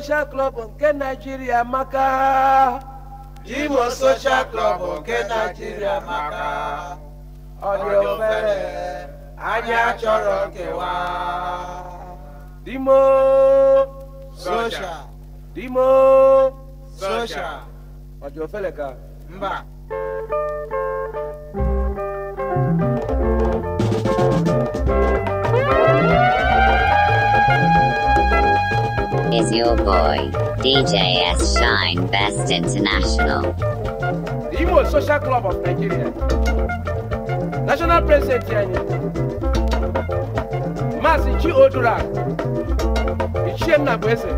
social club nke Nigeria maka Imo social club nke Nigeria maka ọ dị obere anyị achọrọ nkewa Dimo social Dimo social ọ dị ofele ka mba is your boy, DJ S. Shine Best International. The Imo Social Club of Nigeria, National President Tianyi, Mazi Chi Odura, Ichiem Nabwese,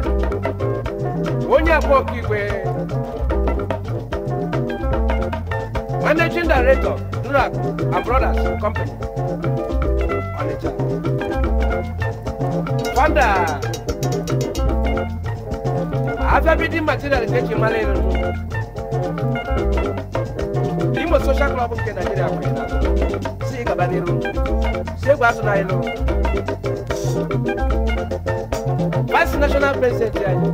Onye Abokigwe, Managing Director, Durak and Brothers Company, Onitsha, Founder, after building material ṣe ṣe malẹ nù imo social club nke nigeria kwe si ị gaba n'iru si egwu asụ na ilu vice national president anyị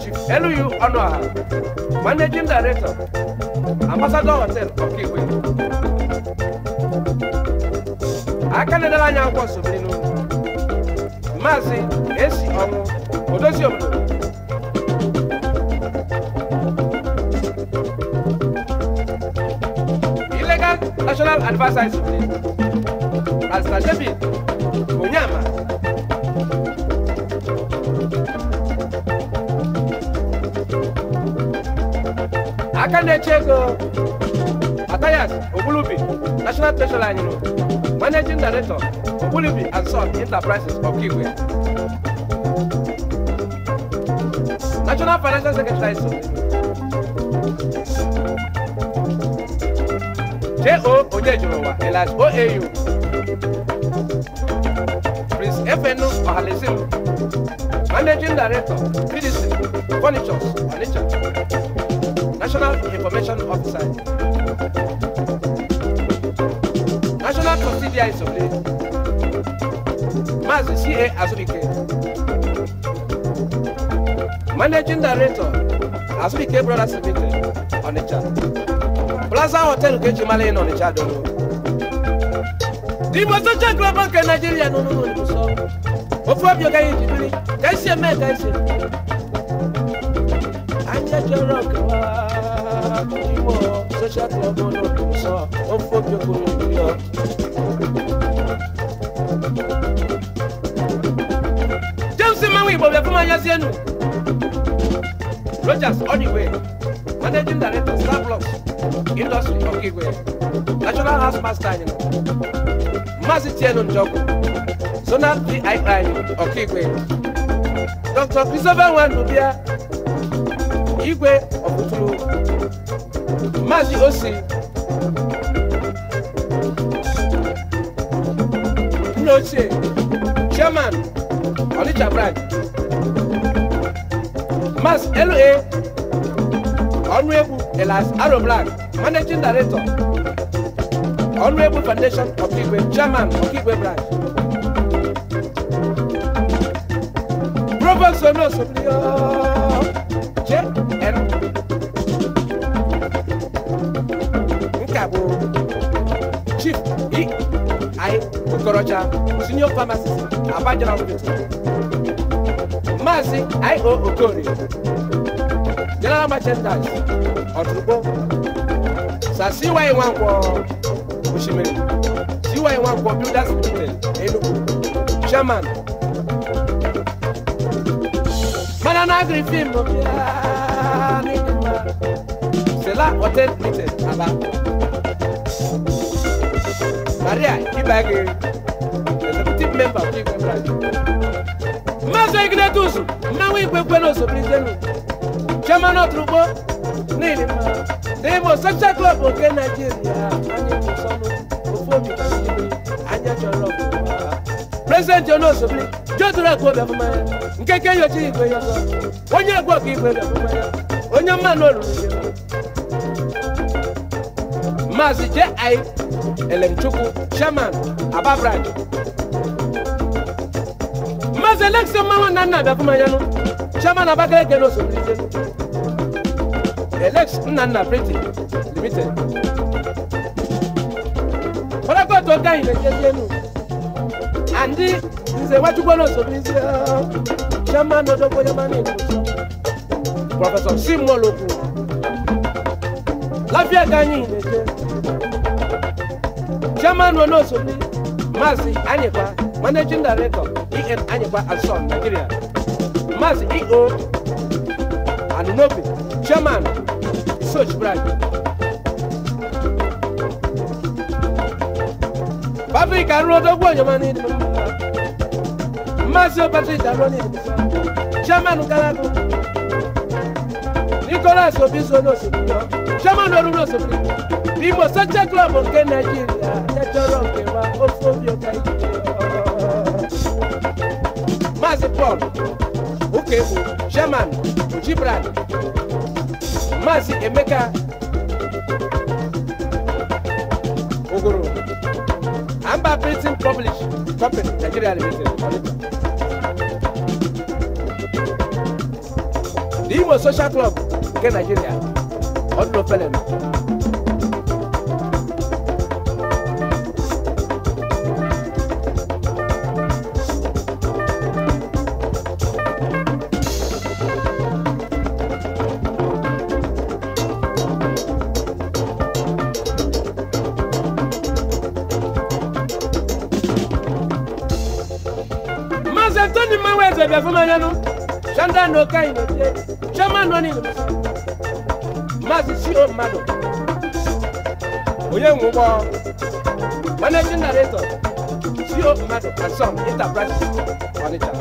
chief elu ọnụọha managing director ambassador hotel Okay, we. na-edere anya akwụkwọ nsobenu maazị esi ọnwụ odozi obodo national adviser today Pastor David Onyama. aka na-eche ego Atayas Ogbulibi national treasurer anyị managing director Obulubi and Son Enterprises of Okigwe national financial secretary so J.O ndị ejụrụwa elas oau prince efenu ọhalesilu managing director pdc furnitures onitsha national information officer national subsidiaries of the maazi ca azubike managing director azubike brothers limited onitsha Plaza Hotel Nkechi Mali nọ n'Ịcha Dodo. Igbo socha ngalaba nke Naịjirịa nọ n'ụlọ Igbo sọ. Ofu obi ọgaghị ejibiri ka esi eme ka esi eme. Anya chọrọ ọkawa Igbo socha ngalaba ụlọ Igbo sọ. Ofu obi ọgaghị ejibiri ọ. James Mmanwụ Igbo bịa fụma anyasị enu. Rogers Odiwe, Managing Director, Star industry Okigwe national house master anyị Maazị Tienu Njọkụ zonal di anyị Okigwe Dr. Christopher Nwandubia Igwe Ọkụtụrụ Maazị Osi nna ochie chairman Onitsha branch Maazị L.A. Ọnụegwu Elas Aro Black managing director honorable foundation of Igwe chairman of Igwe branch provost onosoblio jn nkabo chief ei okorocha senior pharmacist abajara hospital I O okorie general merchandise ọtụrụkpọ na CY1 kwọ Oshimiri CY1 kwọ Builders Limited Enugu Chairman mana na agri film Sela Hotel Hotel. Aba Maria Keep back. Ibagi Executive Member of Igwe Branch Mazo Ignatius Mmanwu Igwe Kwenoso President Chairman Otrugbo n'ihi mma na imo social nke naijiria anyị wụsọnụ ofu obi n'ime anya chọrọ prezidenti ọnụ ozugbo jodoro akụ obi afụma nke ke nyocha igwe ya ọzọ onye egwu ọka onye mmanụ olulu maazị ji elemchukwu chairman aba maazị na nna chairman abakaleke Elex Nana Printing Limited. What Ọlọ́pàá tó ká ìlẹ̀ jẹjẹ nù. Àǹdí ìṣe wájú gbọ́dọ̀ sọ̀rọ̀ ní ṣe ṣẹ́mà lọ́dọ́gbọ́ ṣẹ́mà ní ìlú. Prọfẹ̀sọ̀ Simon Lokun. Láfíà káyìn ìlẹ̀ jẹ. Ṣẹ́mà lọ́dọ̀ sọ̀rọ̀ ní Maazị Anyịkwa, Managing Director, EN Anyịkwa and Son, Nigeria. Maazị EO Anunobi, Chairman Soç bırak. Patrick àrùn ọdọ́gbọ̀n ìjọba ní ìdìbò. Masio Patrick àrùn ní ìdìbò. Chairman Galago. Nicholas Obiso ní òṣèlú yọ. Chairman Olú ní òṣèlú yọ. Ìmọ̀ sọ́jà club nke Nàìjíríà ẹjọ́rọ̀ òkè wa ó fún mi ọ̀gá ìdíje ọ̀ọ́. Maazị Paul Ukegbu Chairman Ojibran maazị emeka ogoro amba printing publish company nigeria limited the imo social club nke nigeria ọdụlọ felenu nenu sanda no ka ino te chama no ni masi shiro mado oye ngwo managing narrator shiro mado and some enterprise manager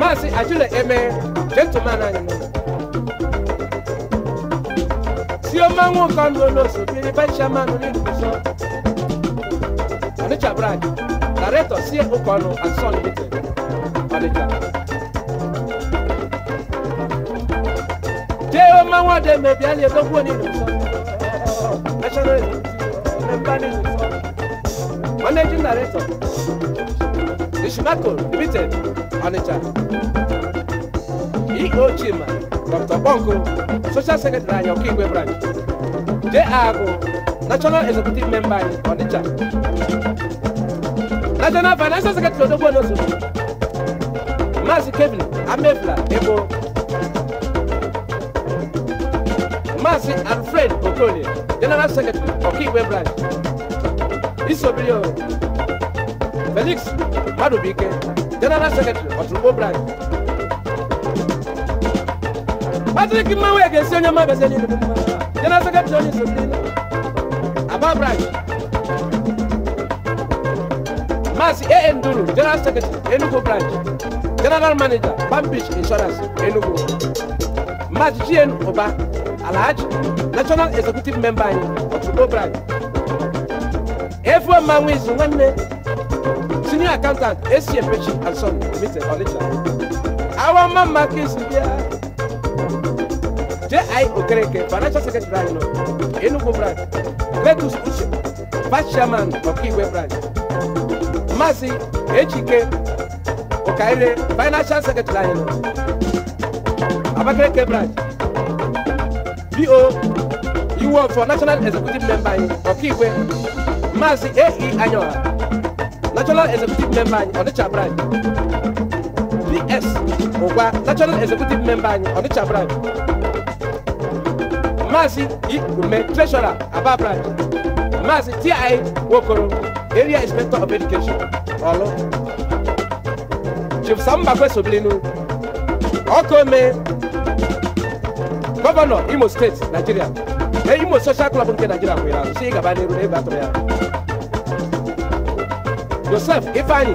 masi ajule eme gentleman anyi Si o máa ń wọ̀n lo lónà sóbì ní bá ṣe máa ń rí Icha brad Director CA Okwano and Son Limited, Manager. Jeo Mawa de Mebiali Dogwoni National Member Managing Director, Nishimako Limited, Manager. EO Chima, Dr. Bongo, Social Secretary of Branch. National Financial Secretary Odogbo Onosogbo Maazị Kevin Amefla Ebo Maazị Alfred Okolie General Secretary Ọkaiwe Branch Isobio Felix Madubike General Secretary Oturugbo Branch Patrick Mmanwu Egesi onye mma beseli General Secretary onye Isobio Aba Branch insurance AN Dolo General Secretary Enugu branch General Manager Palm Beach Insurance Enugu March GN Oba Alhaji National Executive Member anyị Otubo branch Efo Manwizu nwanne Senior Accountant ACM Pechi and Son Limited Our Man Mama Kins bịa J.I. Okereke Financial Secretary anyị Enugu branch Letus Uche Vice Chairman Ọkaiwe branch Amasi Ejike Okaire Financial Secretary Ayelo Abakeleke branch BO for National Executive Member Okiwe. Ọkaigwe Maazị A.E. Anyoha National Executive Member anyị Ọnịcha branch PS Ụgwa National Executive Member anyị Ọnịcha branch Maazị Ikume Treasurer Aba branch Maazị T.I. Nwokoro area inspector of education Hello. chief samba kwesobilinu ọkome Governor, imo State, Nigeria. na imo social club in Nigeria. kwere ahụ si ịgaba n'iru n'ebe atụrụ ya joseph ifeanyi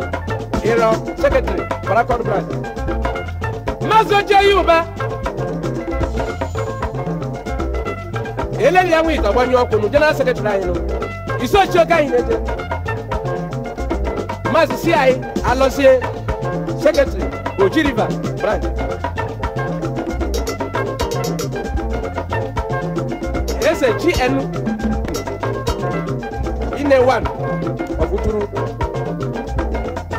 ịrọ sekretari barakọd branch maazị ojeyi ụba eleghị ya nwe ite ọgbanye ọkwụ nụ general sekretari anyị nụ isochi oge anyị Maazị C.I. Alọsie Sekretịrị Oji River Branch. Ese GN Ine One Ọ̀fùtúrú.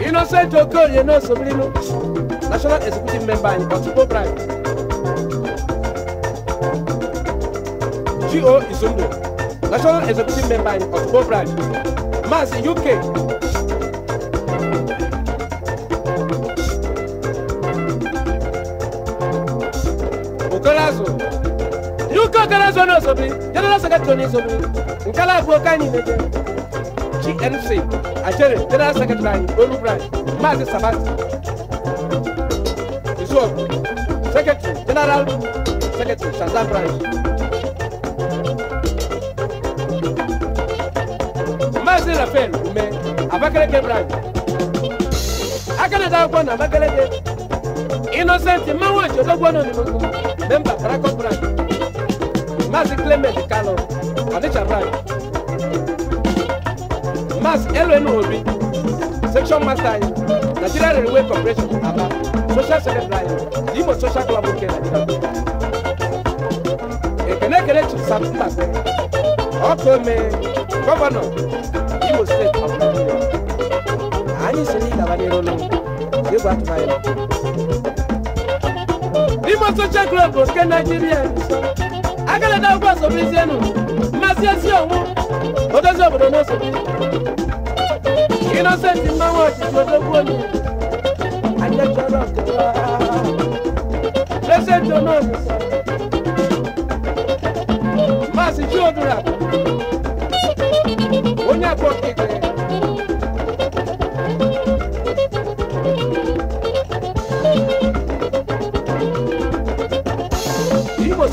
Innocent You know, Sobilinu National Executive Member in Otukpo Branch. G.O. Izundo National Executive Member in Otukpo Branch. Maazị UK. no sobiri jere na saka toni sobiri nkala bu ka ni ne GNC ajere jere na saka tani olu branch mazi sabati iso secretary general secretary Shazam branch mazi Rafael ume Abakaleke branch akana da kwa na Abakaleke innocent mawo jodo gbono ni mo member Brakon branch Maazị Clement Kano Adịchabrany Maazị Elenu Obi Section Master anyị Nigeria Railway Corporation Aba Social Secretary anyị Imo Social Club nke Nigeria Ekene Kelechi Saptase ọkụ ome gọvanọ Imo Steeti of Nigeria anyị si n'ịgaba n'iru n'ụlọ egwu atụmanya Imo Social Club nke Nigeria akalata ụgwọ nsogbu isi enu mmasị esi onwu odozi obodo n'oso inosenti mmanwụ ọchịchị odogwu onye ajechọrọ presenti onozuso maasị chiodura onye akpọ kekere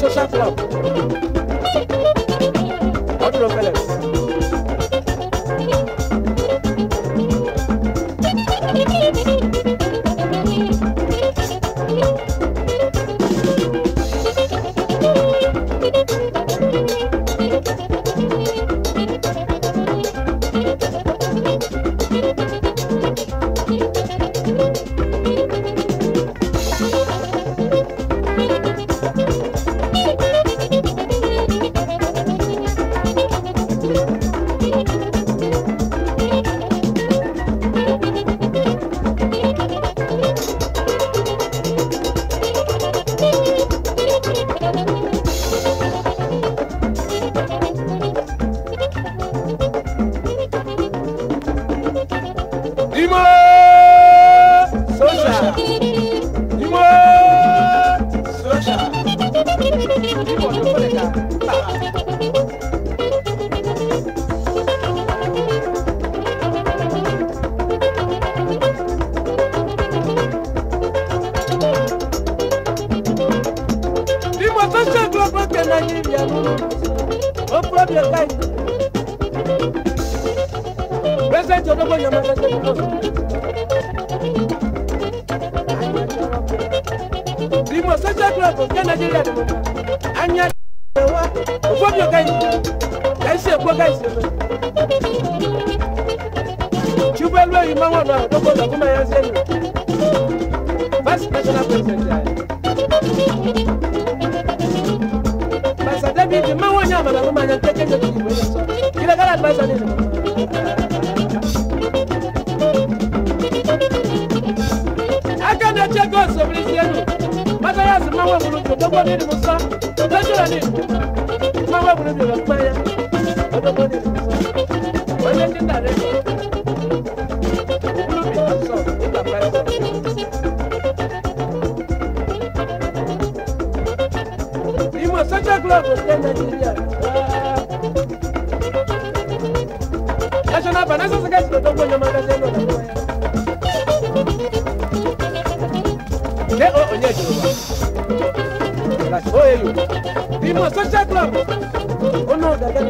social club. los ni ni musa lọ́jọ́ ni ìdúná máa wà wúlò mi ò pẹ́ yá ọdọ́gbọ́ ni musa ọyẹ ní nàrẹ́ mi ò sọ ní bàbá ẹ̀ sọ. ìmọ̀ sọ́jà glove ṣe national finance secretary lọ́dọ́gbọ́ yẹn máa dájẹ́. ìmọ̀ social club ó náà gàgà.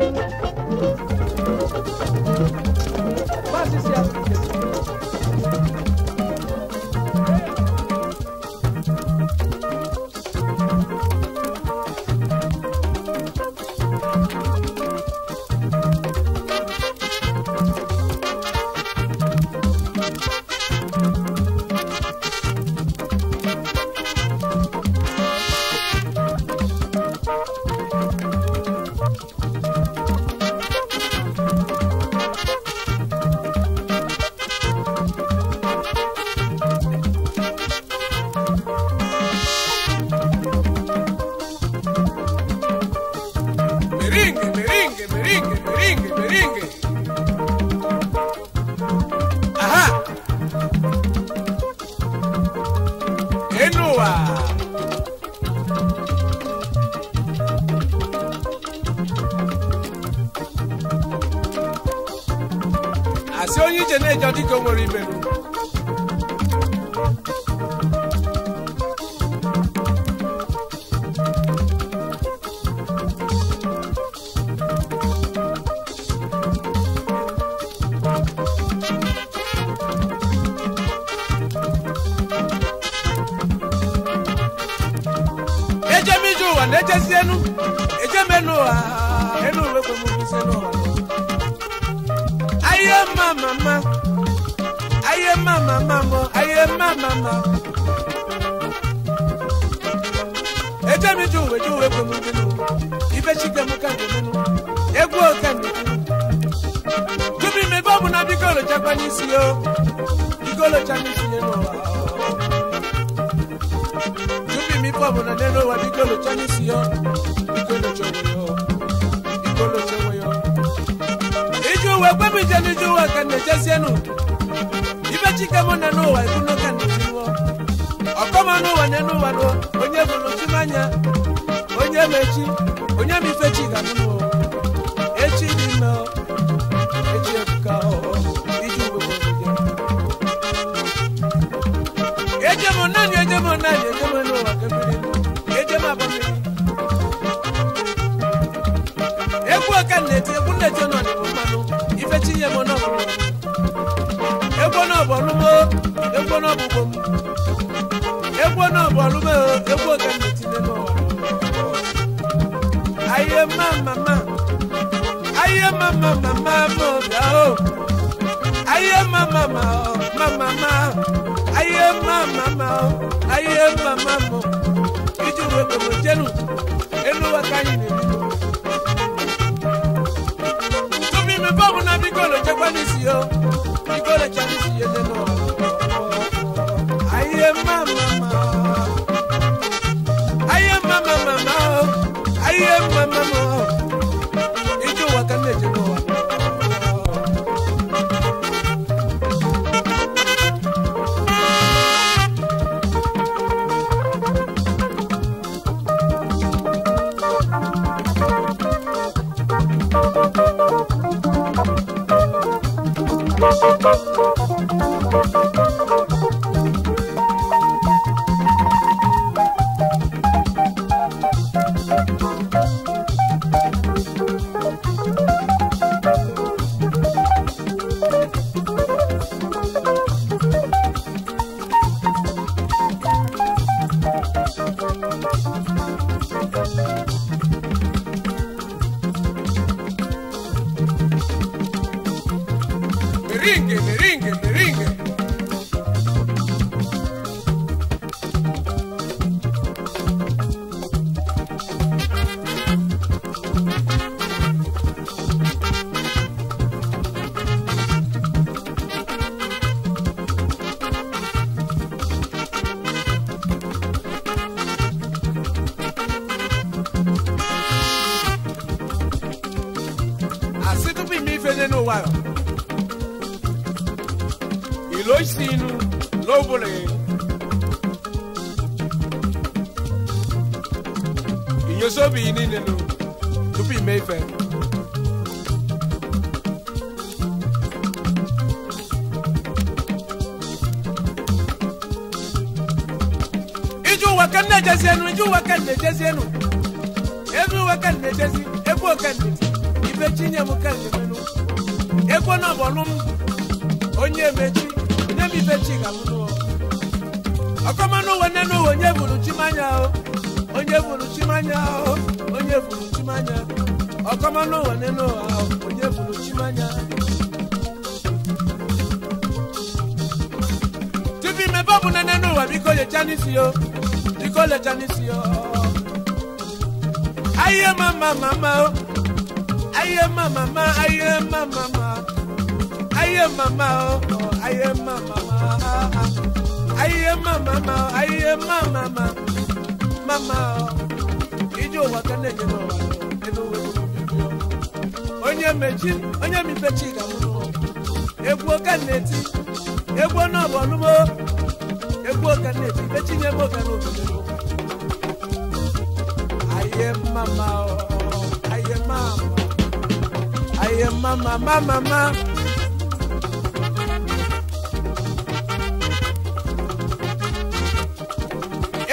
papa, mama.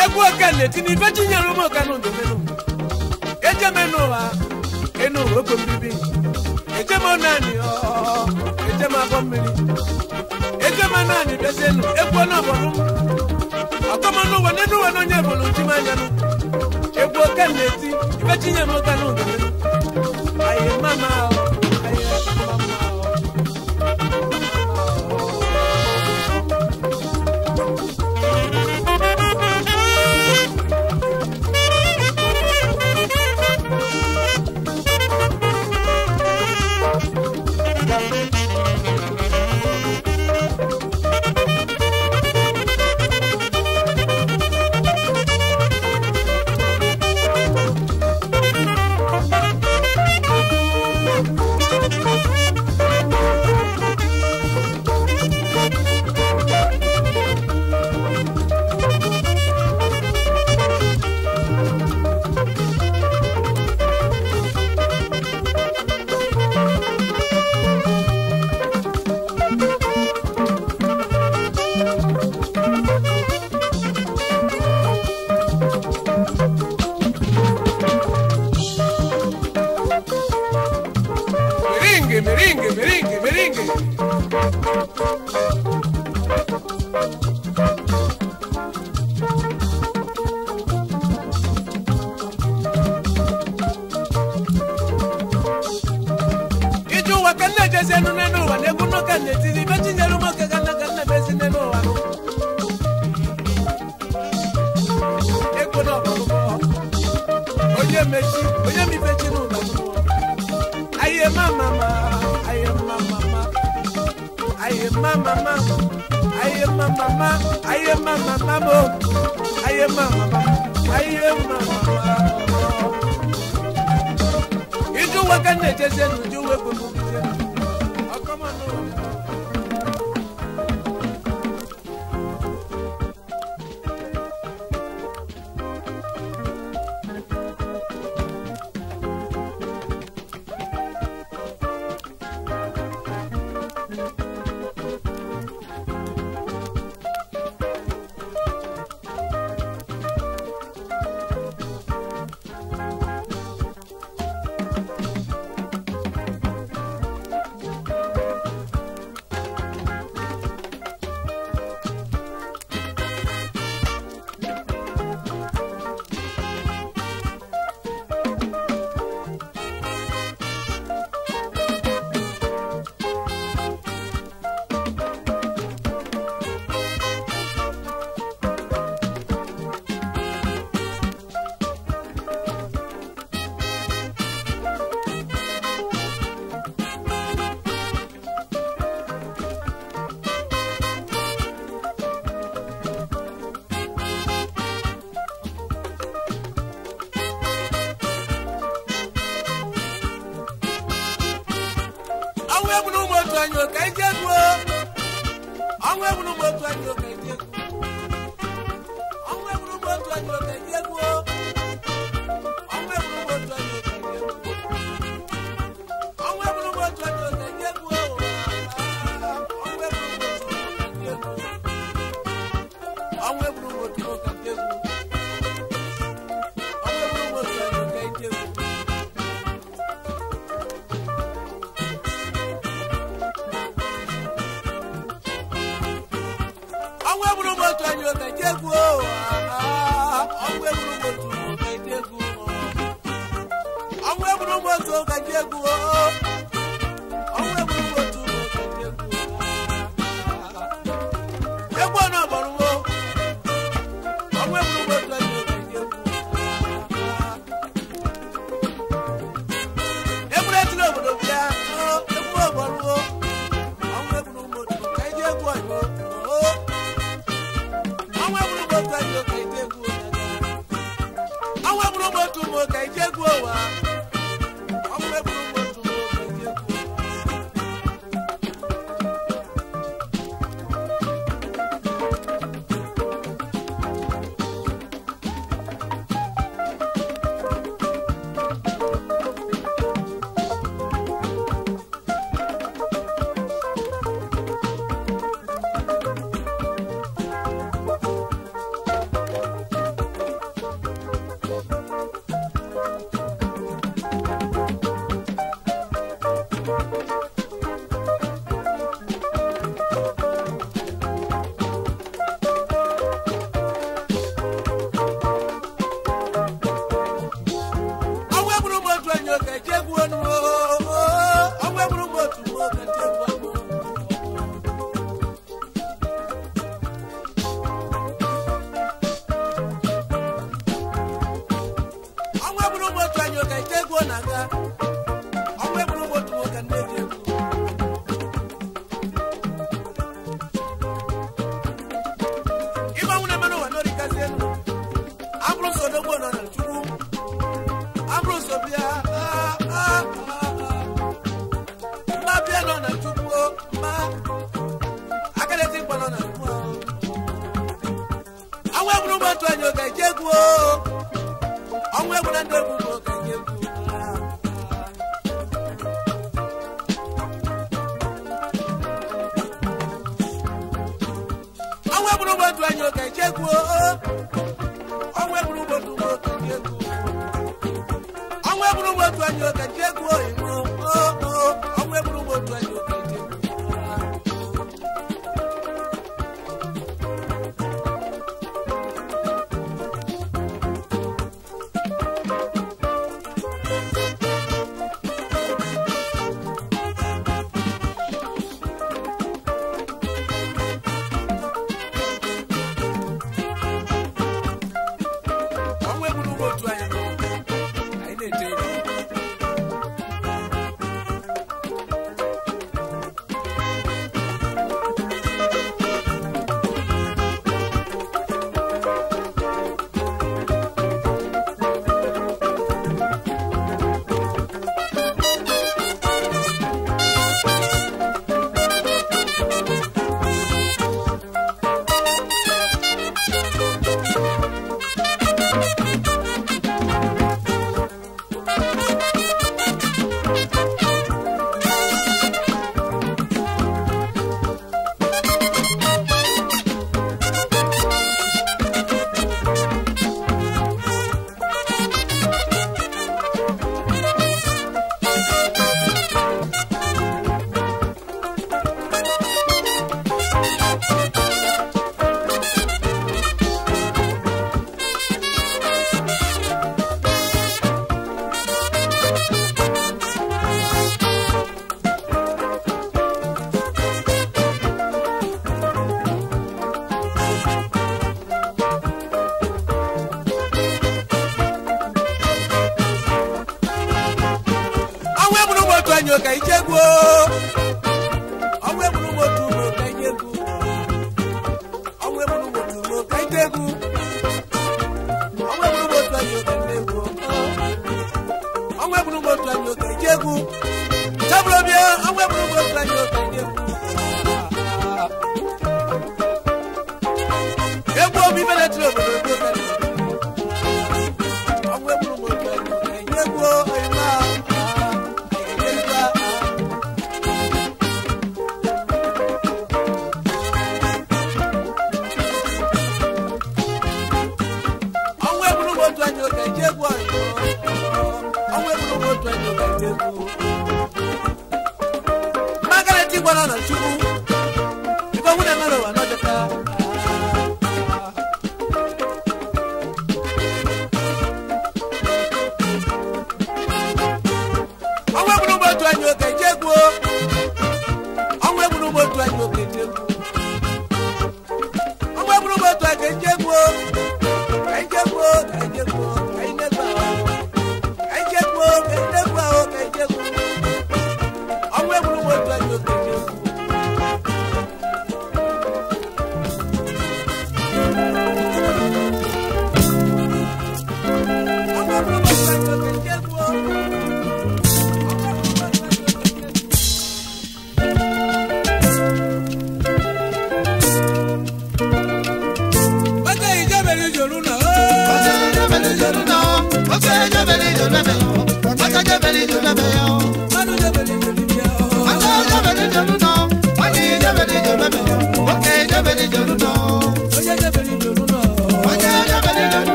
Egwu okene tini ife ji nyere ụmụ menụ. Eje m n'ụwa, enu ụwa okwu mbibi. Eje m naanị ọ, eje m abọ mmiri. Eje m naanị bịazi enu, egwu ọ na-abọrọ m. Akọmọ n'ụwa, n'enu ụwa n'onye ebolo nti m anya n'ụwa. Egwu okene ti, mama iji ụwa ka m na-echezi n'uju uwe bụbụ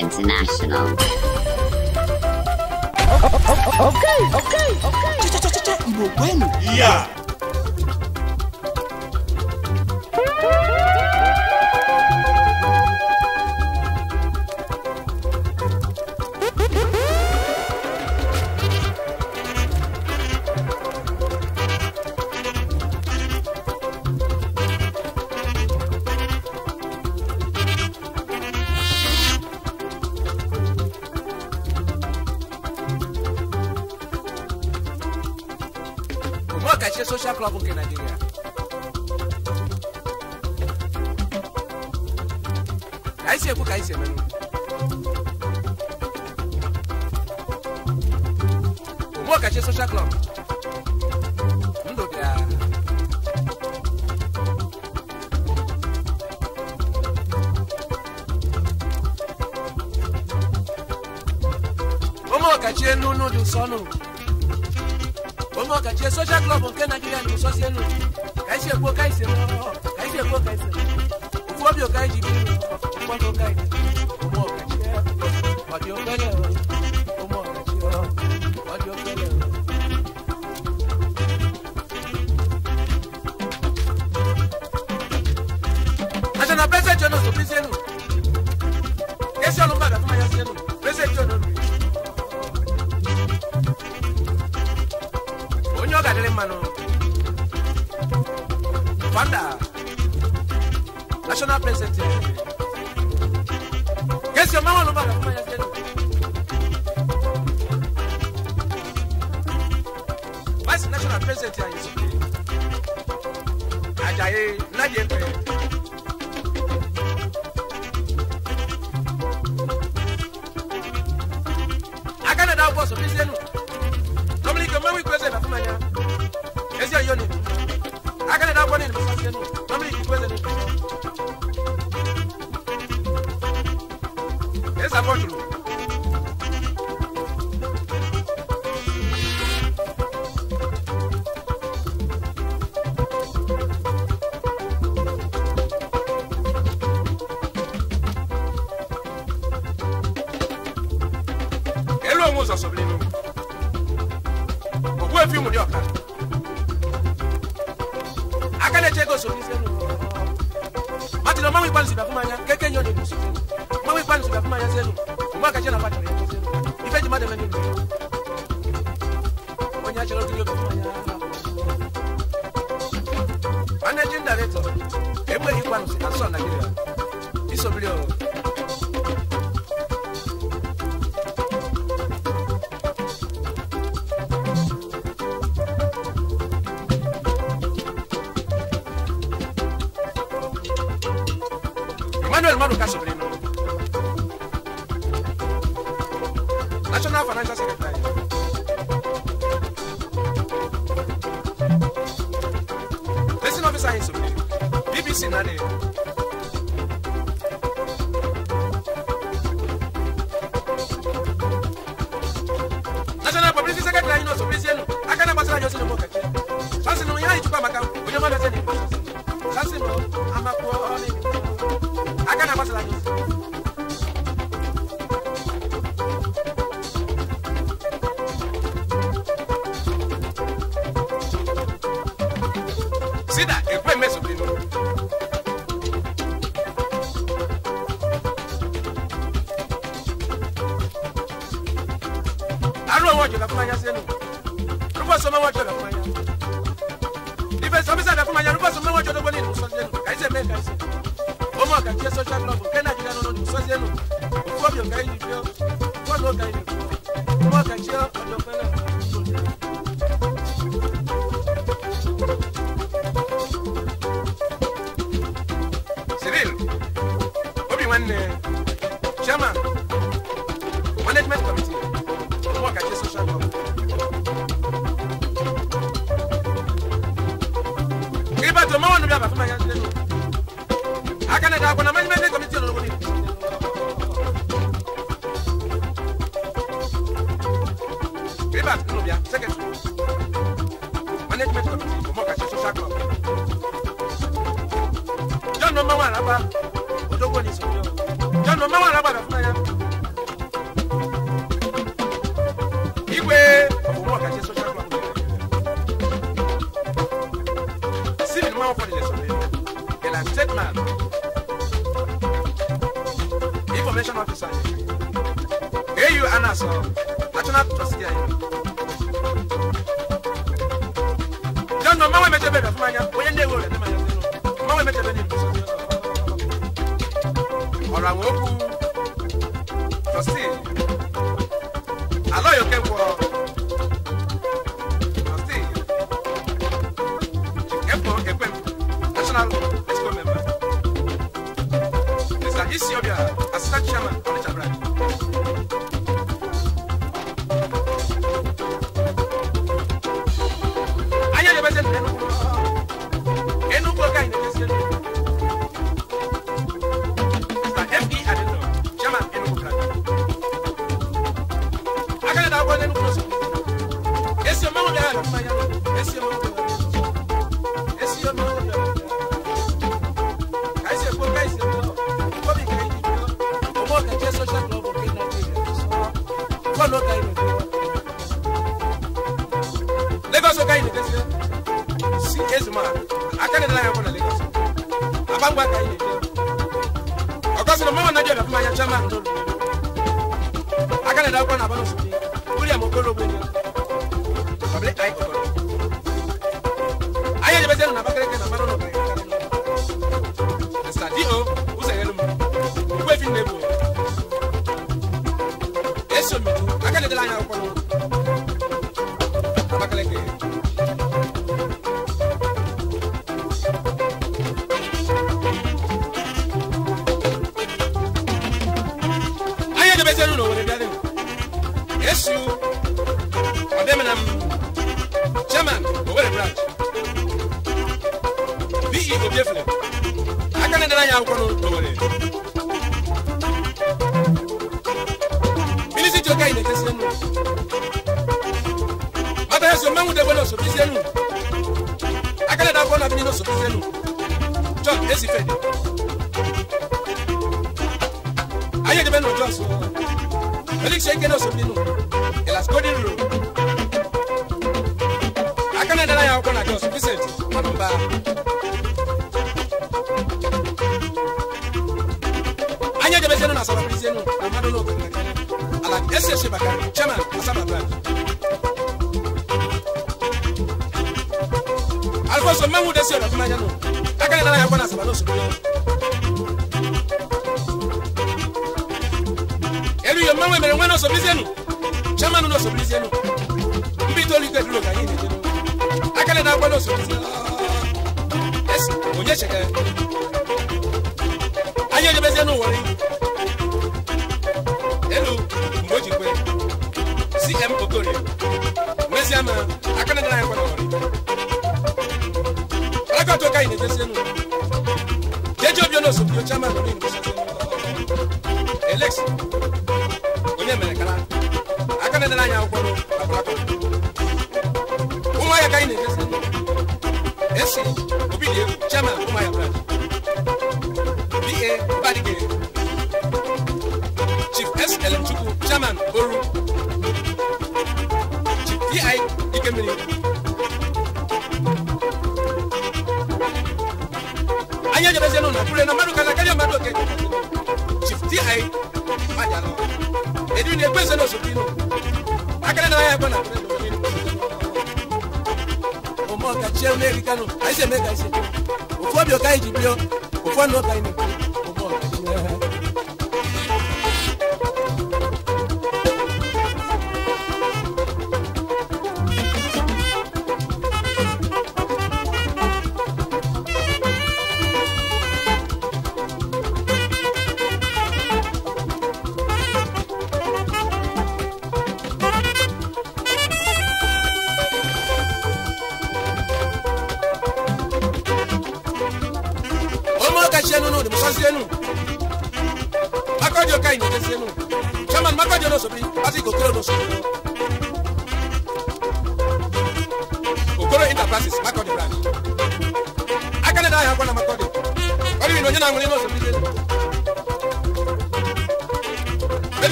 International. social club nke Nigeria. Ka anyị si ekwu ka anyị si eme n'ugwu. Omeọkachi social club. Ndụ bịa. Omeọkachi enu n'ụdị nsọ ọnụ. nke social club nke naijiria na-esosi elu ka anyị si ekwu ka anyị si eme ọhụrụ ka anyị si ekwu ka anyị si ¡Gracias!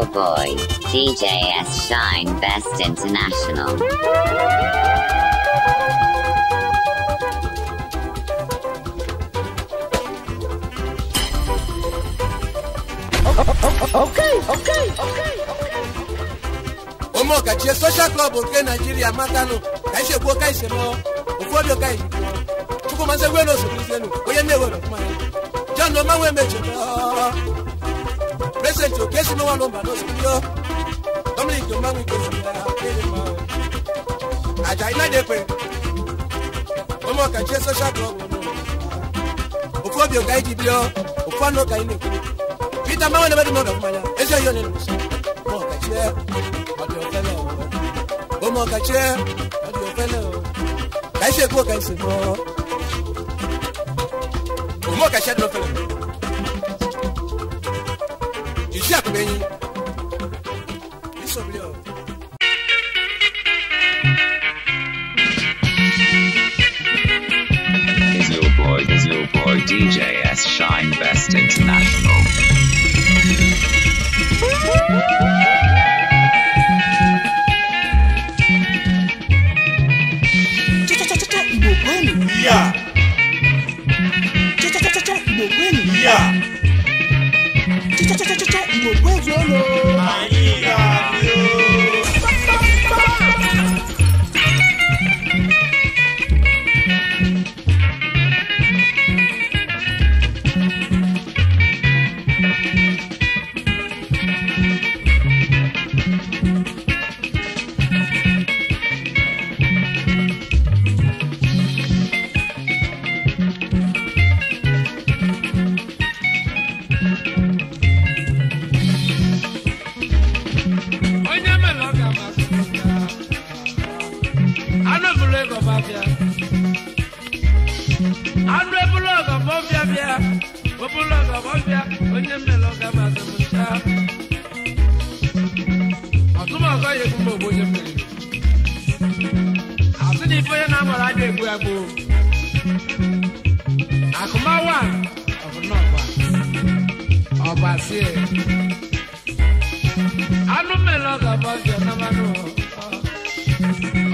Hill Boy, DJS Shine Best International. okay, okay, okay, okay. social club nke Nigeria matanụ ka isi ekwu ka isi lụọ ụfọdụ ka Chukwu mazị egwelu osogbu isienu onye na-ewere John ya John Omanwe sento kesi no walomba no studio domini jomangu kosilaa aja ina dekwe omo kachie social club ofu obi oga iji bio ofu anu oga ina ekwu peter mawe na bedimọdọ mmanya ezi oyi onye nụsọ mo kachie ọdị ofele omo kachie ọdị ofele ka isi ekwu oga isi mo omo kachie ọdị ofele iṣẹ́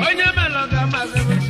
onye melọga mazị bụ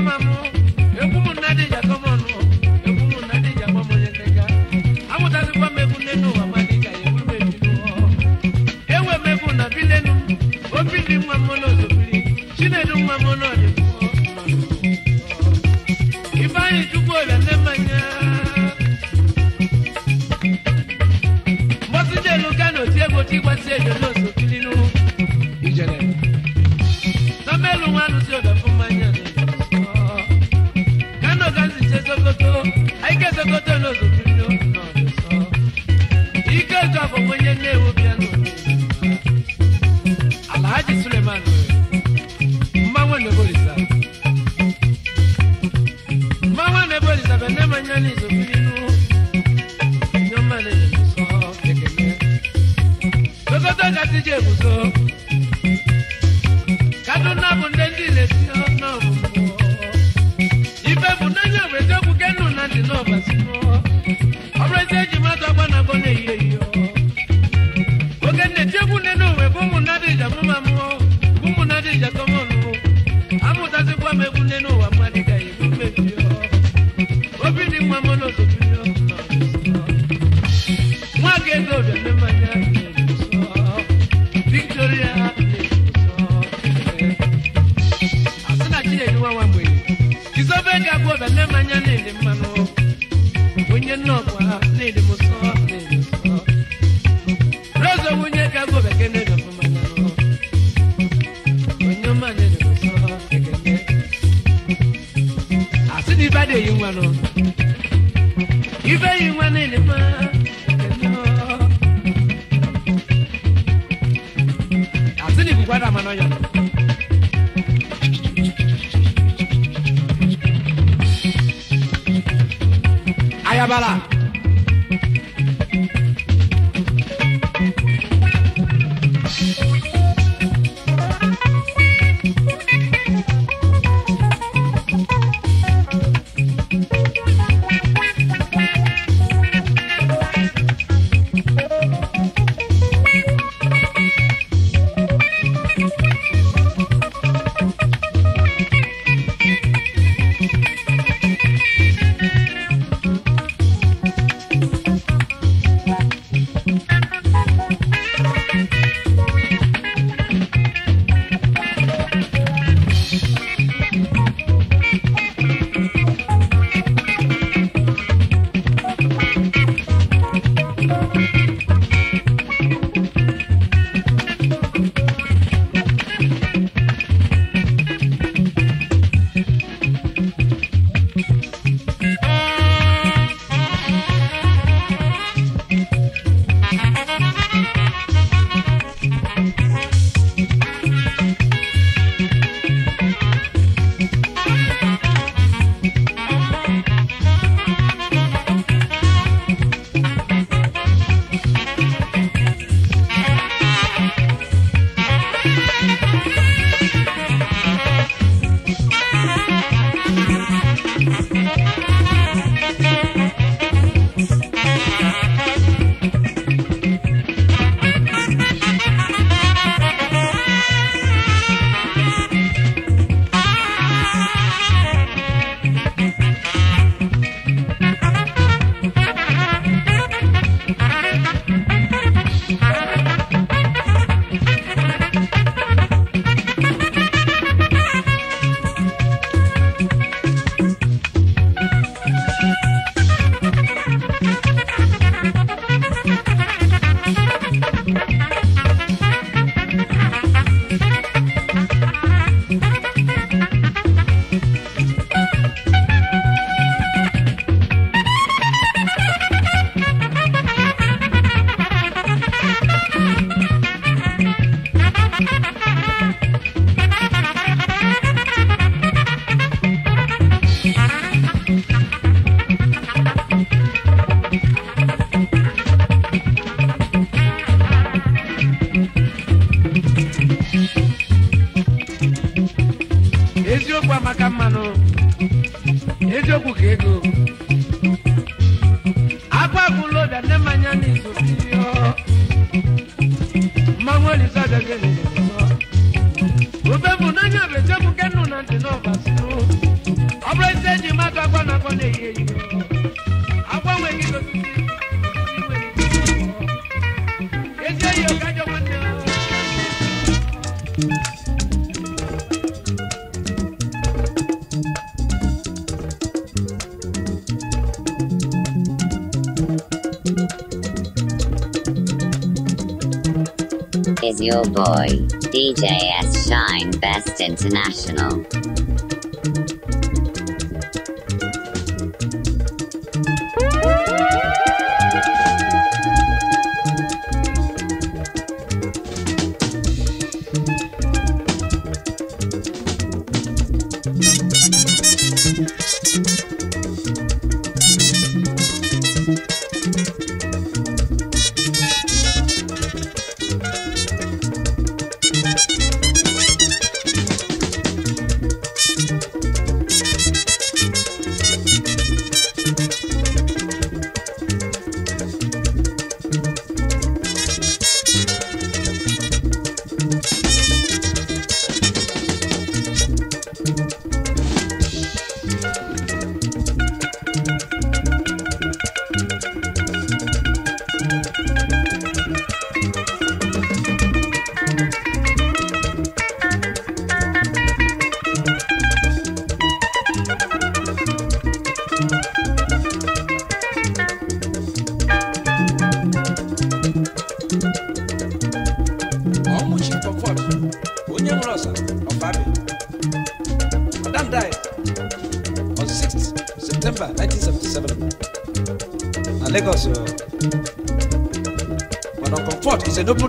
mamãe. DJ S. Shine Best International.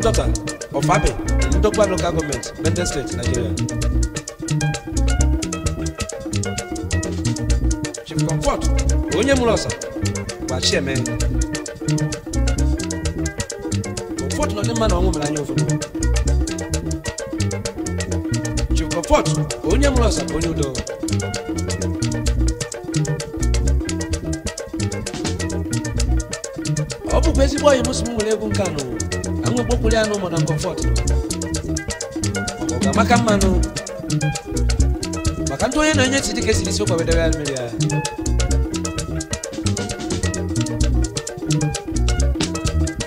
Nsota of Abe, Ndokwa local government, Benton State, Nigeria. Chief Comfort, onye mụrụ ọsa gbachi eme Comfort na ndị mma na ọnwụ mere anya ụfọdụ Chief Comfort, onye mụrụ ọsa ọ bụkwa ezigbo ọyị m si nwere egwu nke anụ okpokwuru ya n'ụmụ na kọmfọt ọ ga-amaka mmanụ maka ndị onye na-enye chi dịka esiri isi ụkwa wedebe ya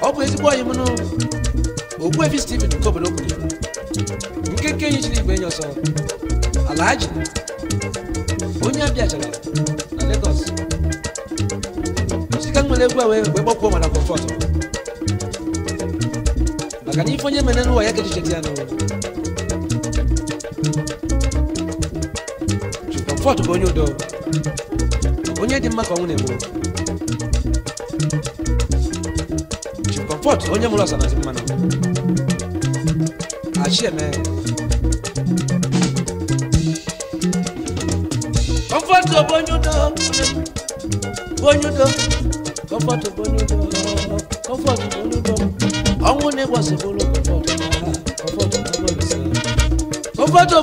ọ bụ ezigbo ọyị mụnụ Ogbuefi Steven nke nke nke enyi igwe enyi a onye abịachara na Lagos osika nwere egwu a wee gbakpuo kadifanye maneno wa yake tuchetiano chukamfua tubonye udo onye dị mma ka ọnwụ na-egbu chukamfọt onye mụrụ ọsa na mmanụ achị eme kọmfọtụ bonye udo bonye udo kọmfọtụ bonye udo kọmfọtụ bonye udo ne wasobola okukwata do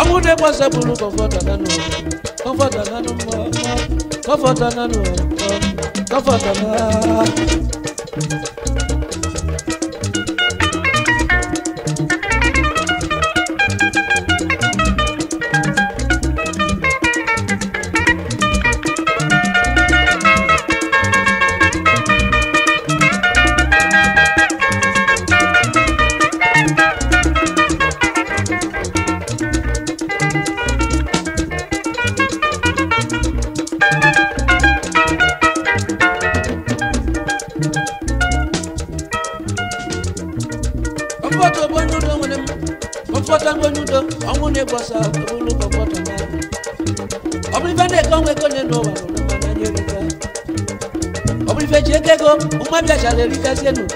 ọmụdé gbọ́sẹ̀ bụrụ kọfọdà nánú kọfọdà nánú kọfọdà nánú kọfọdà nánú. mata sharerika zenu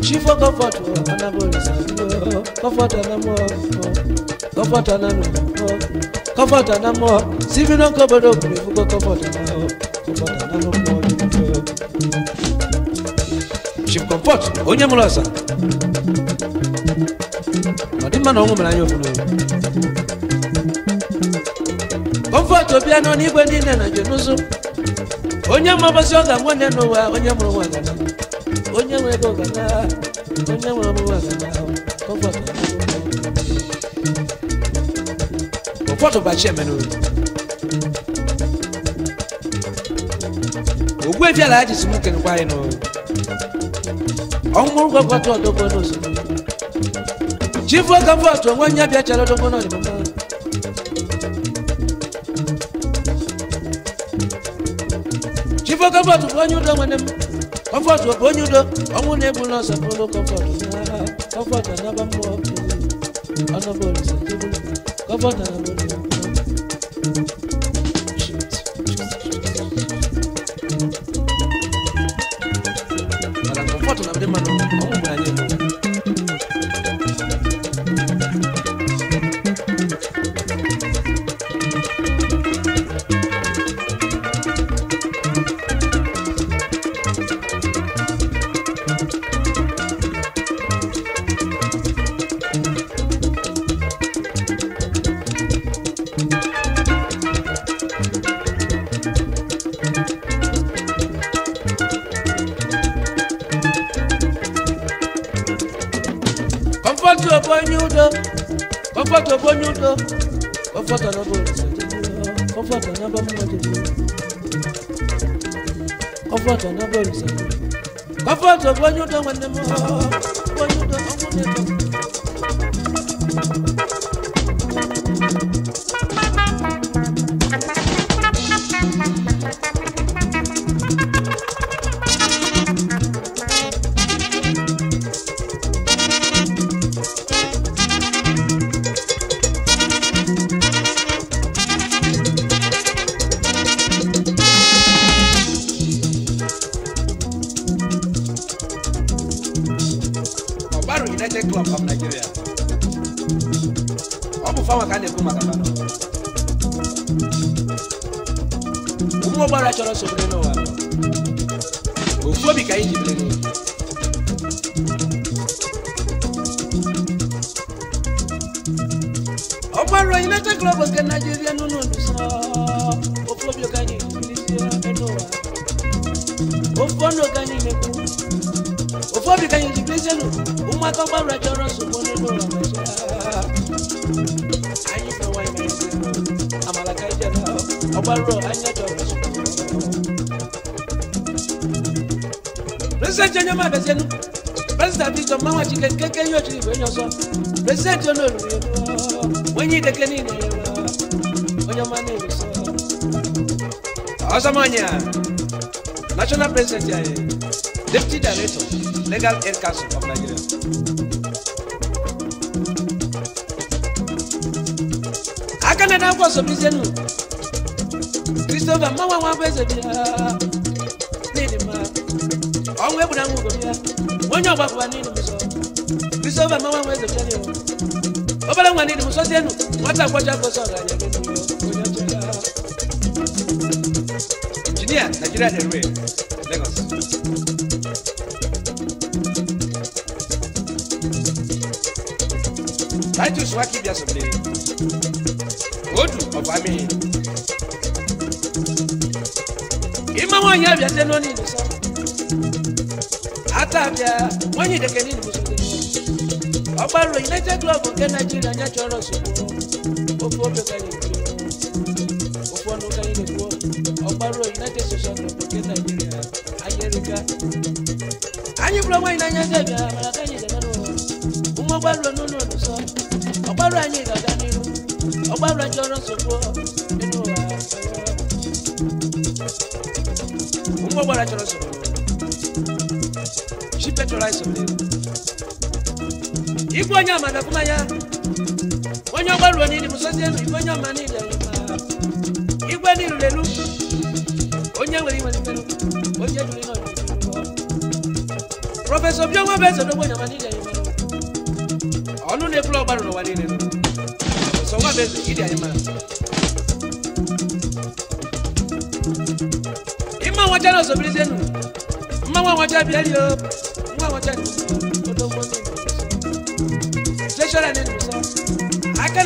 chifo kofoto anabolisa kofoto namo kofoto namo kofoto namo sivino kobodo kulifuko kofoto namo kofoto namo chimkompot onyamulasa odimana ongomelanyofuno kofoto biano nigwe ndine na jenusu onye mabasị ọ ga-anwa nne n'ụwa onye mụrụ nwa gana onye nwere ego gana onye nwere ọmụwa gana ụfọdụ bachi emenu ogbu ebiala aji si m kenekwa anyị n'ụwa ọnwụrụ gwagwatụ ọdọgbo n'osimiri chifu ọka mbọtụ onwe onye bịachara ọdọgbo n'ọdịmma ifo kọfọtù bonyudo nwene m kọfọtù bonyudo ọnwụ na-egbu n'ọsọ bụrụ kọfọtụ kọfọtụ anaba mmụọ ọnọbụ olise kọfọtụ anaba mmụọ mama chike keke yo chiri wenyo so president yo no lumi yo wenyi deke ni ne yo wenyo mane yo so Osamanya national president ya ye deputy director legal air council of Nigeria akana na kwa so bizenu Christopher mama wa beze bia nini ma onwe kuna ngugo bia wenyo kwa kwa nini sọ́fà máa wá wọn ẹsẹ̀ fún mi o ọbẹ̀ lẹ́wọ̀n ni ìdìbò sọ́sí ẹnu wọ́n tà kọjá kọ sọ̀rọ̀ àyẹ̀ Engineer, Nigeria Railway, Lagos. Titus Wakibia Sobe, Odu of Ami. If wọn yẹ abiase n'oni nisan, ata abia wọn when dẹkẹ ni nimuso ọgbàrò united club nke Nigeria nya chọrọ nsogbu ofu ofe ka anyị na-ekwu ofu ka anyị na-ekwu ọgbàrò united social club nke Nigeria anyị erika anyị bụrụ nwaanyị n'anya ndị abịa iponyoama nakumanya onye ogbaloni limusozi elu iponyoama niile igwe nilu lelu onye nwere iwe nimelu onye duru ihe prọfesọ biọnwa bụ eze n'ogbo nyama niile anyị mara ọnụ na-eburu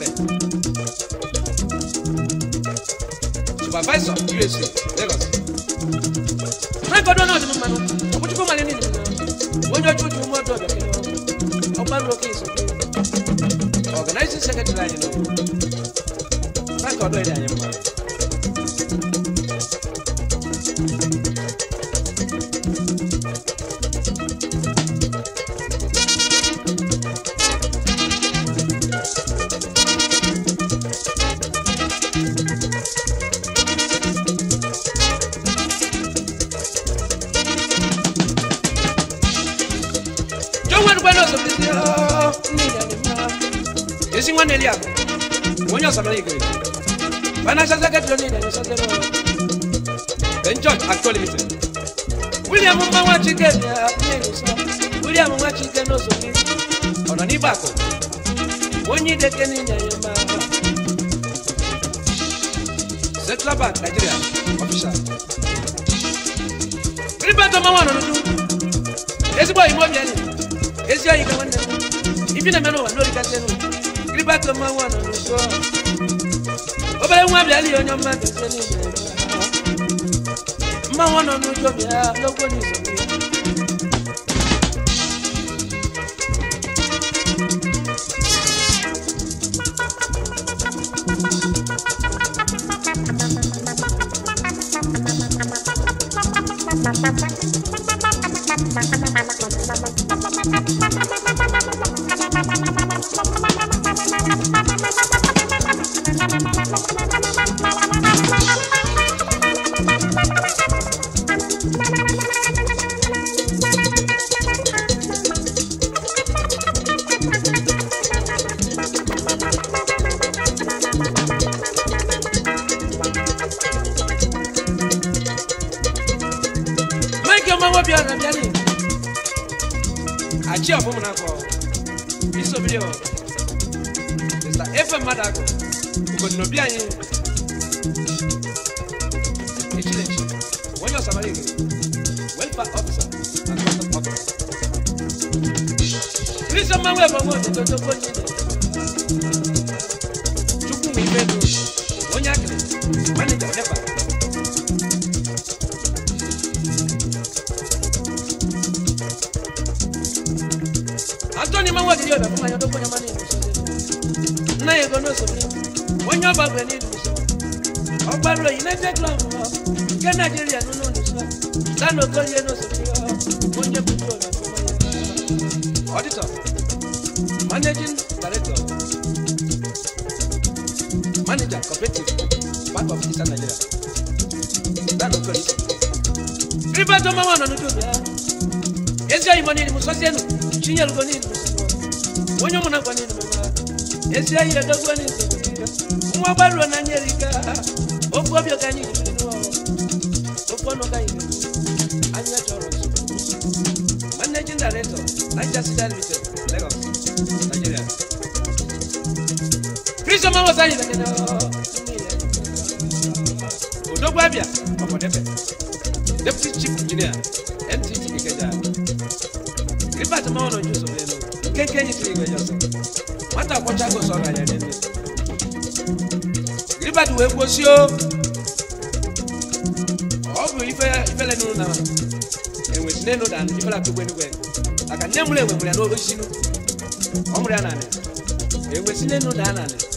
bẹ́ẹ̀. supervisor usa Lagos. wọ́n gbọ́dọ̀ náà nínú mmanụ ọ̀pọ̀jùpọ̀ mmanụ nínú mmanụ onye ọjọ́ ojú mọ́tò ọ̀bẹ̀ kí wọ́n ọgbà lókè ìsọ̀kè organizing secretary anyị nọ báńkì ọdọ ẹ̀dẹ̀ anyị kékeré ní yẹ̀yẹ̀ Central Bank Nigeria official. Rí bá tọ́ máa wà lọ́dún. Èsì bọ̀ ìmọ̀ bíẹ́lì. Èsì ayé kan wọ́n ní ẹ̀kọ́. Ìbí nà mẹ́rin wà lórí kẹsẹ̀ nù. Rí bá tọ́ máa wà lọ́dún sọ. Ó bẹ̀rẹ̀ wọn bíẹ́lì ọ̀nyọ́ máa tẹ̀sẹ̀ ní ìyẹn. Máa wọ́n nọ̀ ní ojú ọ̀bẹ̀ lọ́gbọ́n ní ìsọ̀rọ̀ bio mr efe mmadụ agụ obodo obi anyị echilechi When ọsamara igwe welfare officer na custom Please come and Manuel Dodo Bonyi Hello, go here, no superior. Monje control na kuma. Auditor, managing director, manager cooperative, bank of Eastern Nigeria. That of course. Riba to mama na nuto ya. Ezia imani ni musasienu, chinya lugoni ni musasienu. Wonyo muna kwa nini mama? Ezia ile dogwani ni superior. Mwa barua na nyerika. Ogobyo kanyini. Annual Toronto. Managing Director, Manchester Limited, Lagos, Nigeria. Chris Omawa Sanyi Sakena. Odogbo Abia, Omodefe. Deputy Chief Engineer, MTG Ikeja. Ripart Mawono Juso Beno. Kenkenyi Tiri Ikeja Ose. Nwata Akwachago sọ̀rọ̀ àyàdẹ́dẹ́. Ripart wee gbosi o. ọbụla kwegbeniwe maka e m enwe mụrụ ya n'olu sinu ọ mụrụ ya na anị na a n'elu na anị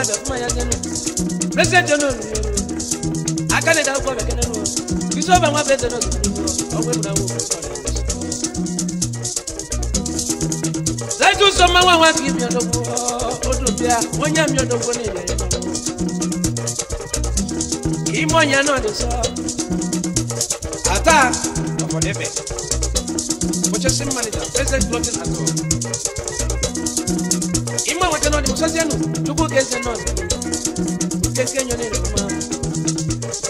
ya bɛ kuma ya gɛnu president yɛ n'olu yɛ o a ka ne da o kɔ bɛ kɛnɛ n'o kisɛ o bɛ n ka president n'o kɛ o bɛ mun na o bɛ kɔ dɛ. sẹ́jú sọmọ wọn wá kí mi ọ̀dọ́gbọ́ odò bíà wọ́n yá mi ọ̀dọ́gbọ́ ní ilẹ̀ yẹn kì í mọ̀ yẹn náà lè sọ ata ọ̀pọ̀lẹ́fẹ̀ purchasing manager president lọ́fíìsì àtọ̀. ese nọọsụ keke enyo na eruma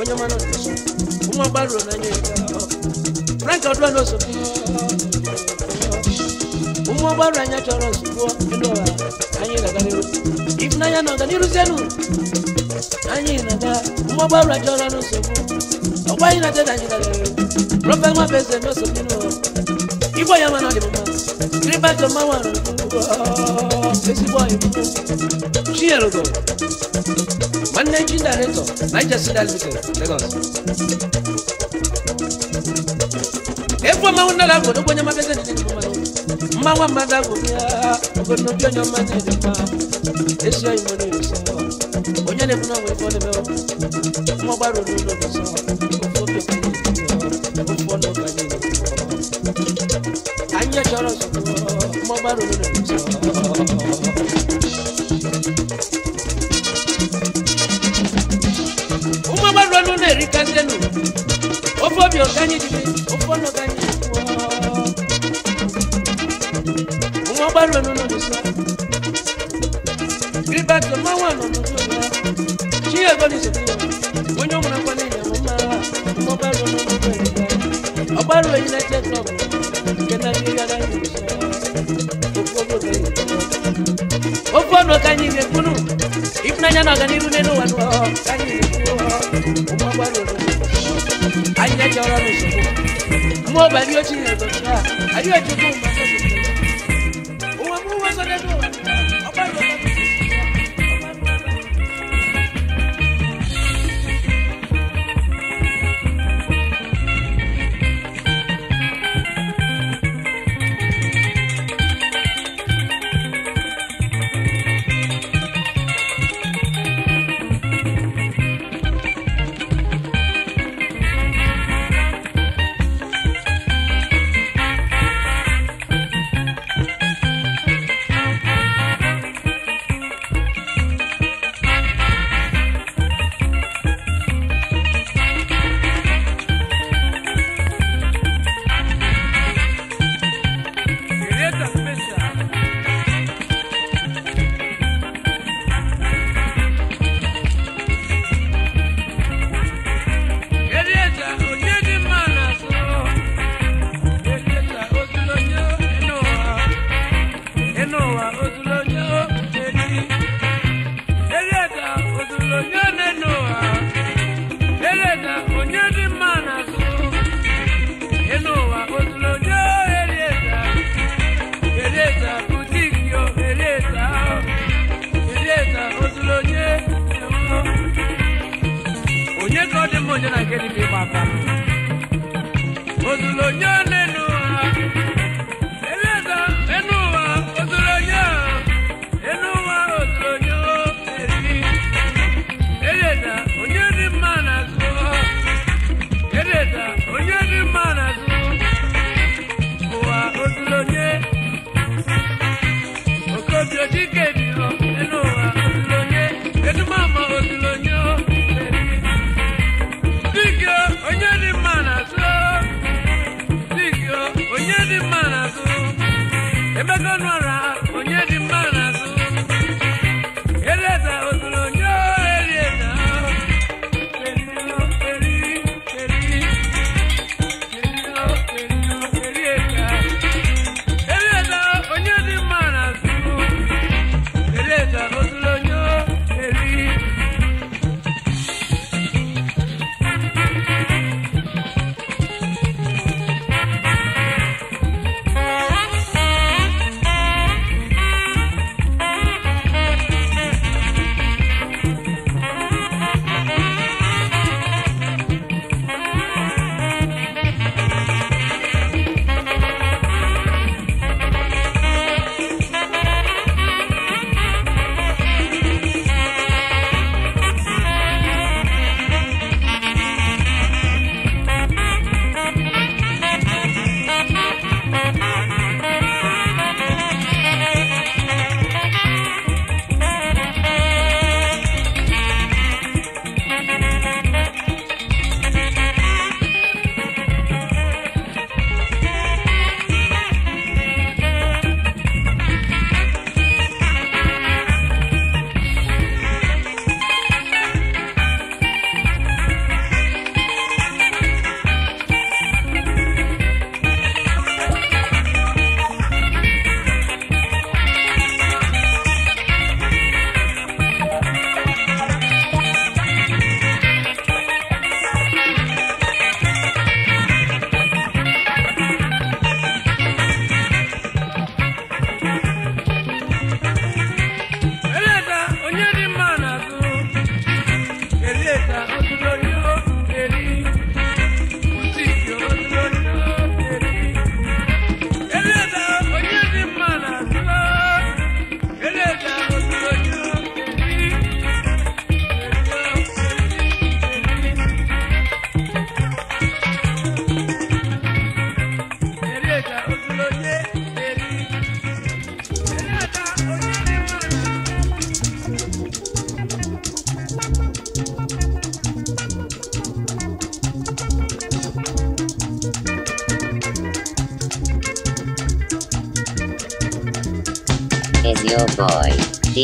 onye ma nọọsụ ụmụ agbaru n'anya frank ọdụwa nọọsụ ụmụ agbaru anya chọrọ nsogbu elu ọha anyị na-agariru ịfụnanya na ọganiruzielu anyị na-aga ụmụ agbaru achọrọ nsogbu ọgwa anyị na-adị na anyị na-agariru prọfet nwabeze nọọsụ Igbo ya mana di mama. Griba to mama rugo. Esi boy rugo. She rugo. Managing director, Niger City Limited, Lagos. Epo ma wona la go do nya makete di mama. Mama wa mada go ya. Go no bi nya mada di mama. Esi ayi mo funa we ko le me. Mo ba ro ro lo so. bá ronú rẹ̀ ló sọ. Uma bá ronú rẹ̀ rí kájẹ́nu, ó fọ́ mi ọ̀gá yín dìde, ó fọ́ ní ọ̀gá yín wọ́. Uma bá ronú rẹ̀ ló sọ. Gírígbà tó máa wà nà ọ̀nà tó lọ, kí ẹ̀gbọ́n ní sọ̀tún yọ̀, wọ́n yóò múra kọ́ ní ìyàwó máa wà, ọmọ bá ronú rẹ̀ ló sọ. Ọ̀bá ronú ẹ̀yin lẹ́jẹ̀ tó ọ̀gbọ̀n. anyamaga n'iru n'enu wanu ọ ka anyị na-ekwu ụmụ agbara orogo anyị na-eji ọrụ ọrụ nsogbu mmụọ ọba ndị ochie na-ezo anyị ejikwa ụmụ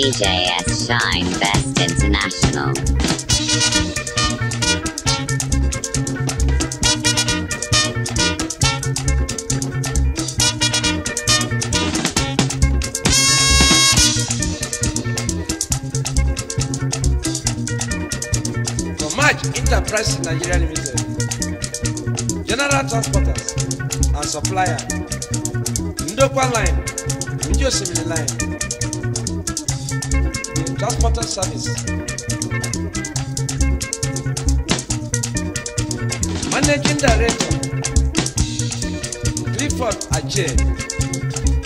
DJ F. Shine Best International. Comaj Enterprise Nigeria Limited, General Transporters and Supplier, Ndokwa Line, Njosimili Line, important service. Managing Director Clifford Ajay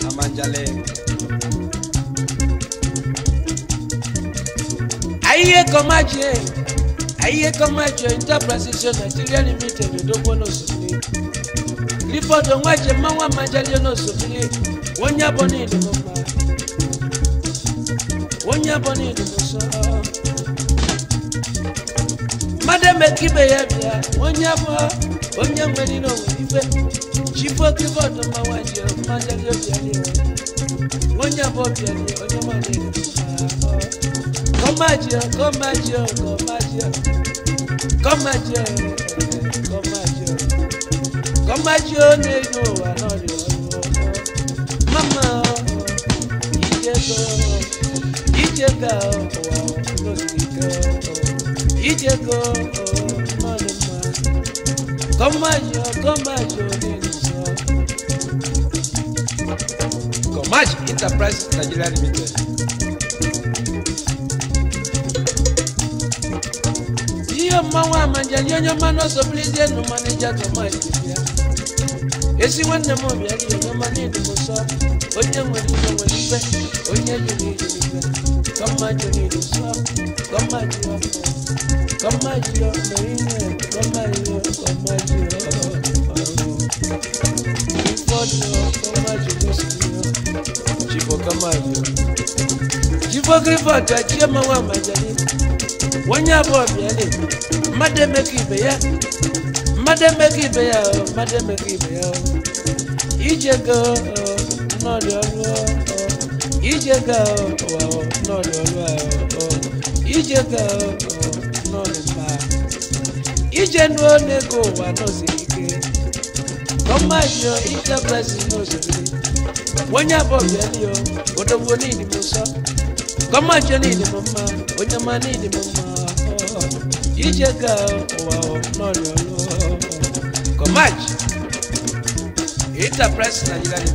Amanjale. Aye kan máa jẹ ayé kan Interpretation Nigeria Limited Odogbo náà sùn ní. Clifford Onwaje Mawa Amanjale náà sùn nílé. Wọ́n yábọ̀ ní ìdìbò kan nyabo so, duso madame kibe ya bia wonyabo wonya ni no wibe chipo kibo to mawaje madame yo ya. ni wonyabo bia ni onyama ni duso komaje komaje komaje komaje komaje komaje ne no wa Ijega o, oh, no diga o. Oh, Ijega o, oh, no le ma. Koma yo, koma yo ni so. Comaj Enterprise Nigeria Limited. Iyo mawa manja nyonyo mano so please no manager to my. Esi wanne mo bi ali yo mani ni mo so onye nwere ibe nwere ibe onye jere ije ibe kọmma jere ije sọ kọmma jiri ọfọ kọmma jiri ọfọ ime kọmma jiri kọmma jiri ọfọ ụfọdụ kọmma jiri ọfọ jibo kọmma jiri jibo grifọt achie mmanwụ amajali onye abụọ bịa le mmadụ emekọ ibe ya mmadụ emekọ ibe ya mmadụ emekọ ibe ya ije go nọọlì ọlúwa ọ ìjẹgà ọ ike kọmáàjọ ìjẹpẹsì nọọsì ike wọn yàbọ bẹẹni ọ òdòwò ní ìdìbò sọ kọmáàjọ ní ìdìbò mma onyama ní ìdìbò mma ọ ìjẹgà ọ wà ọ nọọlì ọlúwa ọ kọmáàjọ. Nigeria.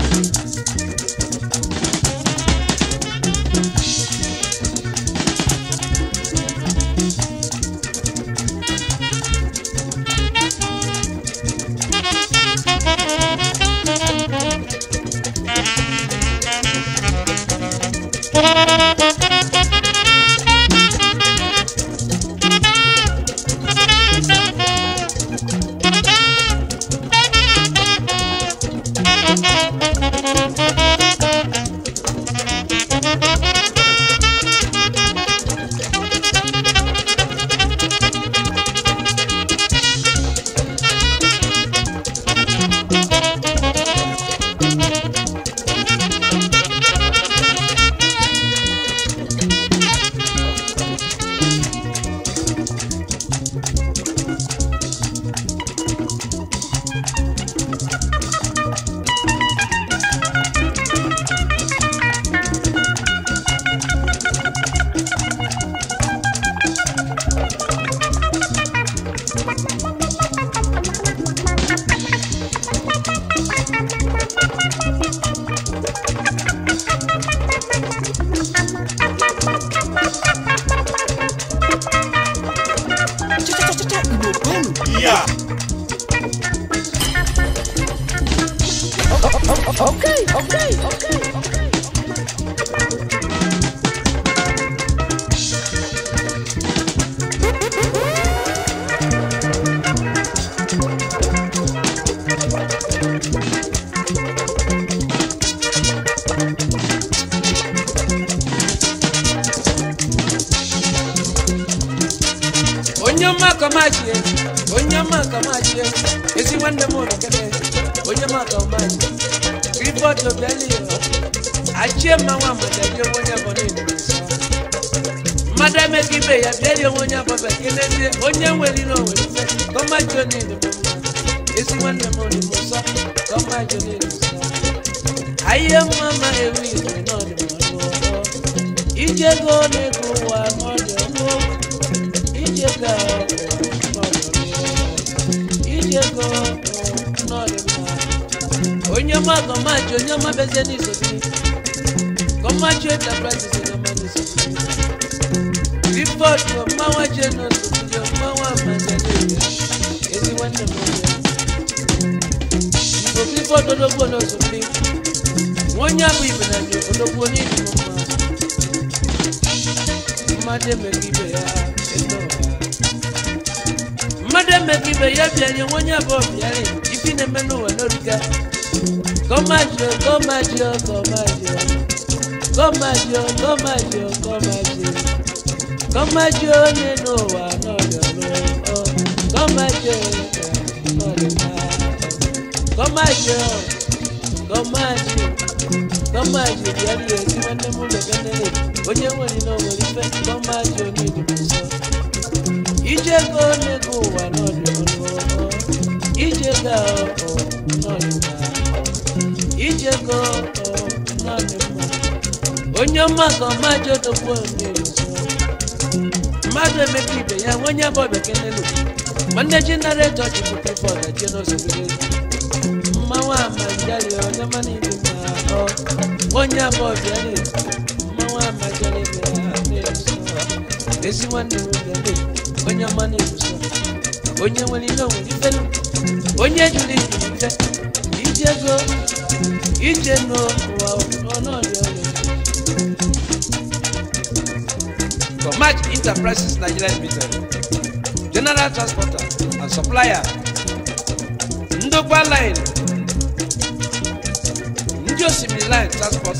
Música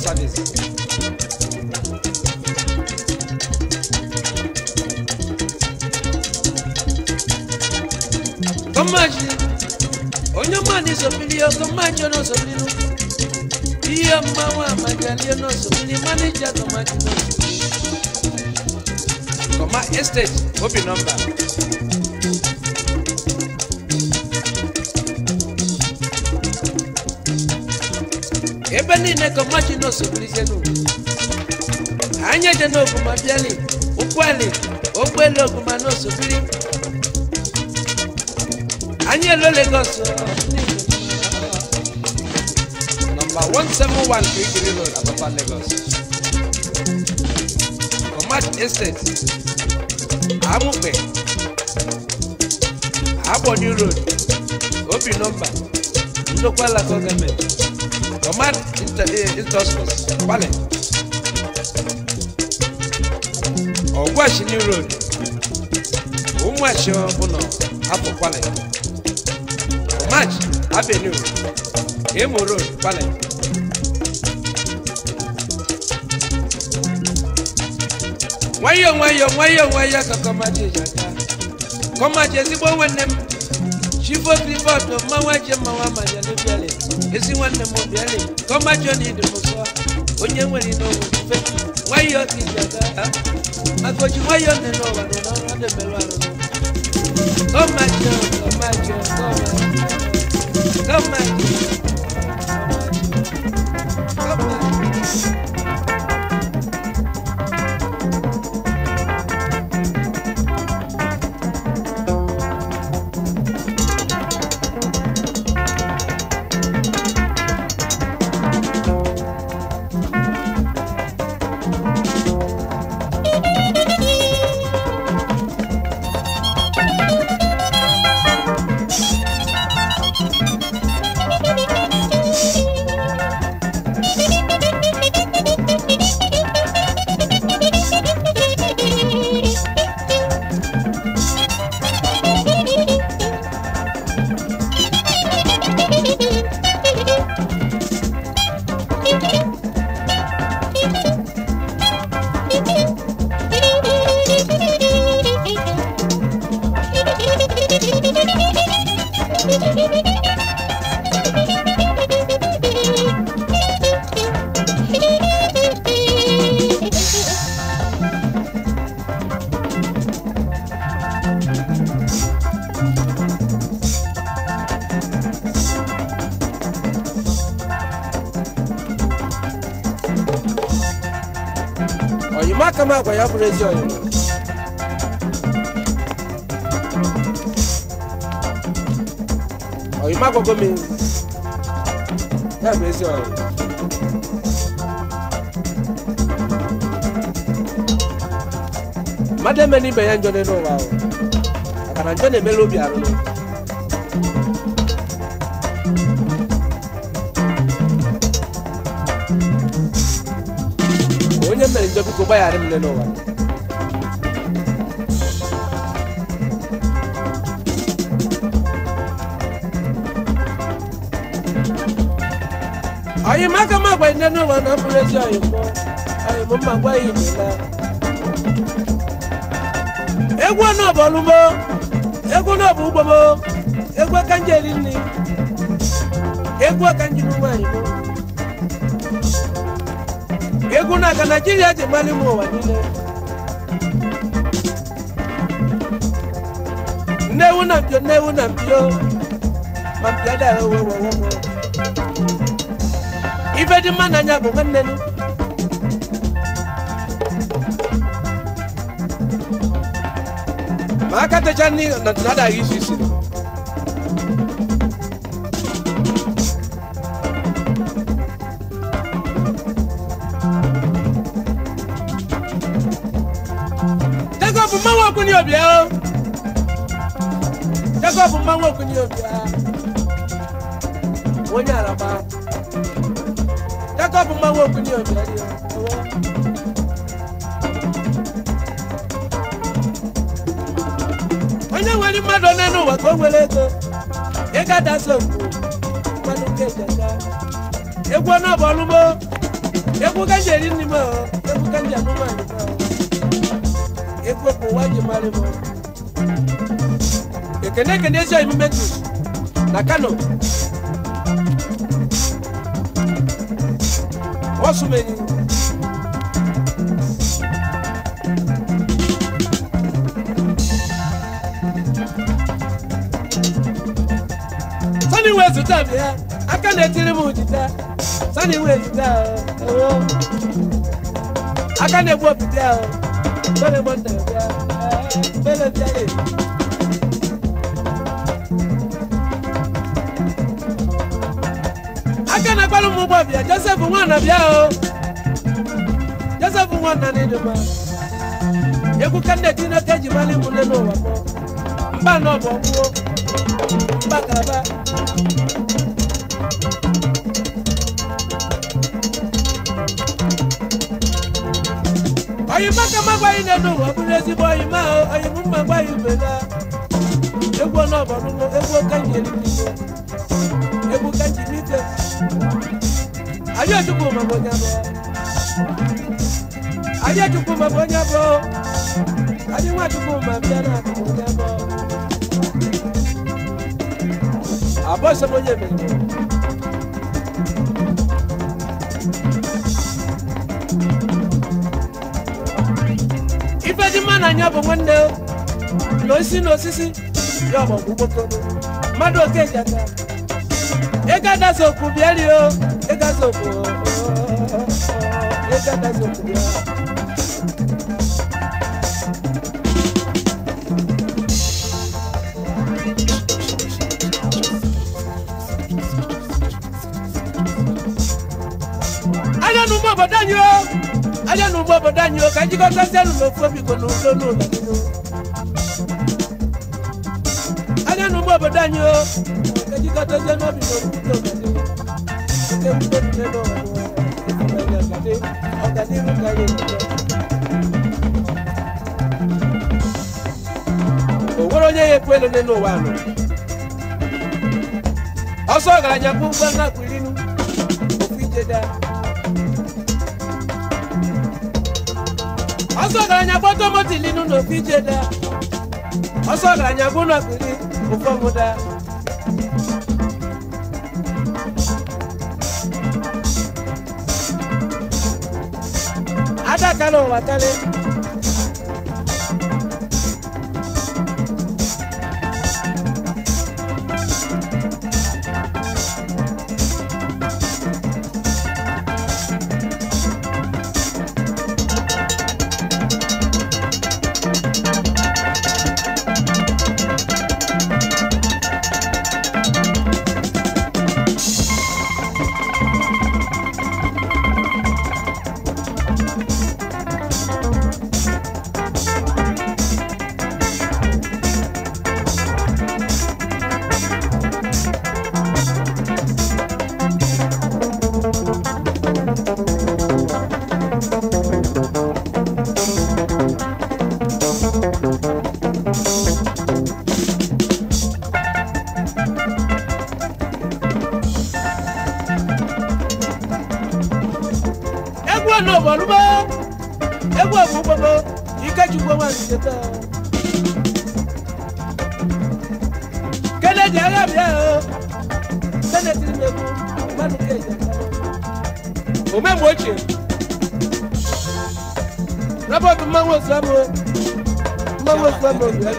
service. kọ́májì onyomani sọ̀bìlì ọkọ̀májì ọ̀nà sọ̀bìlì nù iye ọmọ àwọn àmàjálì ọ̀nà sọ̀bìlì mánéjà kọ́májì nù. kọ́má estate ó bì nọ́mbà. ebe niile ka ọmachi na osogburizienu anyị eje n'oguma bịali ụkwụeli ụgbọelu oguma na osogbiri anyị elo Lagos nọmba 171 kirikiri road road obi nomba. nsokwa ala gọọmenti tomat intoscos eh, kwale ọgwashini road ụmụachi ọbụla apụ kwale tomat avenue imo road kwale nwayọọ nwayọọ nwayọọ nwayọọ ka kọmaji ji aga kọmaji Chivo Grivoto, Mawa Jema Wama Janibiale, Esi Wane Mobiale, Koma Johnny de Moswa, Onye Wani no Mufe, Wayo Kijaga, Makoji Wayo Neno Wano, Nora de Melwano, Koma Johnny, Koma Johnny, Koma Johnny, Koma Johnny, àgbà yà fúnra jọ yẹn. ọ̀yìn má gbọ́gbọ́ mi yà fúnra jọ yẹn. madame ni bẹ̀yà ń jọ nínú wa o àkàrà ń jọ nínú ẹ̀mẹ́lóbi àrùn. jabi ko ba yare mine no wa ayi maka ma gba inde no wa na pulesi ayi ko ayi mo ma gba yi ni egwu na bolu mo egwu na bu ugbo mo egwu kanje ni egwu kanje ni wa yi mo Kekuna ka Nigeria ti mali mo wa nile. Newu na mpio newu na mpio. Mampio da wewe wewe. Ife di mana nyago ngennenu. Makate chani na tunada isi Jacob mmanwụ okunye obi ha. Onye araba. Jacob mmanwụ okunye obi ha. Onye nwere mmadụ onye n'ụwa ka o nwere ego. Ị ga-adasa okwu. Mmadụ nke ejeka. Egwu ọnụ ọbụ ọlụmo. Egwu ka ji eri nri m. Egwu ka ji anụmanụ m. Egwu ka ụwa ji mara m kene kene esi ayi mmedu na kano wɔso menyi sani wee zuta bịa aka na-etiri m jita sani wee zuta ewo aka na-egbu opite sani gbọnta bịa bele bịa aka na akpara ụmụ ụgbọbịa Joseph na bịa o Joseph nwana n'ịdịmma egwu ka nne tineke eji mara ịmụle n'ụwa mba nọbụ ọgbụo mba ka m bụrụ ezigbo oyima oyim mma Ayétukù mabonyabo Ayétukù mabonyabo Adiwatuku mabiana mabonyabo Abose bonyeme Ife di mana nyabo mwende N'osi n'osisi ya ọmọ gbogbo mmadụ oke jata ịga daso okwu bịa rio ịga so ayanu mọ bọ dání o ayanu mọ bọ dání o kájí kọ́ sẹ́sẹ́ ló lọ fún mi kò ló ló ló lọ nínú. ayanu mọ bọ dání o kájí kọ́ sẹ́sẹ́ ló mi lọ fún mi kò ló ló lọ nínú o nwere onye ya ekwele nne n'ụwa anụ ọsọ ọgaranya bụ mgbe nakpụrinu okwu ijeda ọsọ ọgaranya bụ otomotilinu na okwu ijeda ọsọ ọgaranya bụ nakpụri ofe mátalo, mátale. Islam o mọ́mọ́ Islam o lùyà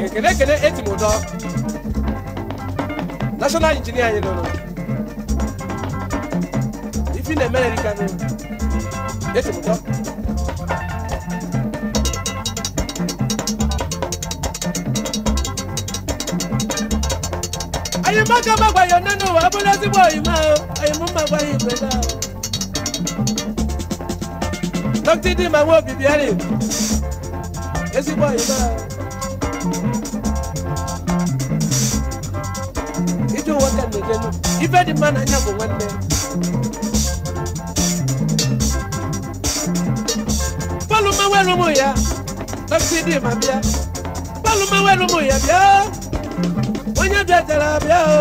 ni kene kene eti mu dɔ national engineer yi lolo ifi na mɛlɛ ni kanu eti mu dɔ. àyìnbọ́kà bàgbà yọ nínú abúlé síbò ìmọ̀ àyìnbó bàgbà yìí pé náà. dókítì dì máa ń wọ bìbí ẹ̀rì èsìbò ìmọ̀. ìjọ wọ́n kẹ́ lè jẹ́nu ìfẹ́ di mọ́ náà nyàgò wọ́n lẹ́. bọ́ọ̀lù máa wẹ́rù mú ya dókítì dì máa bíá bọ́ọ̀lù máa wẹ́rù mú ya bíá onye bịajara abịa o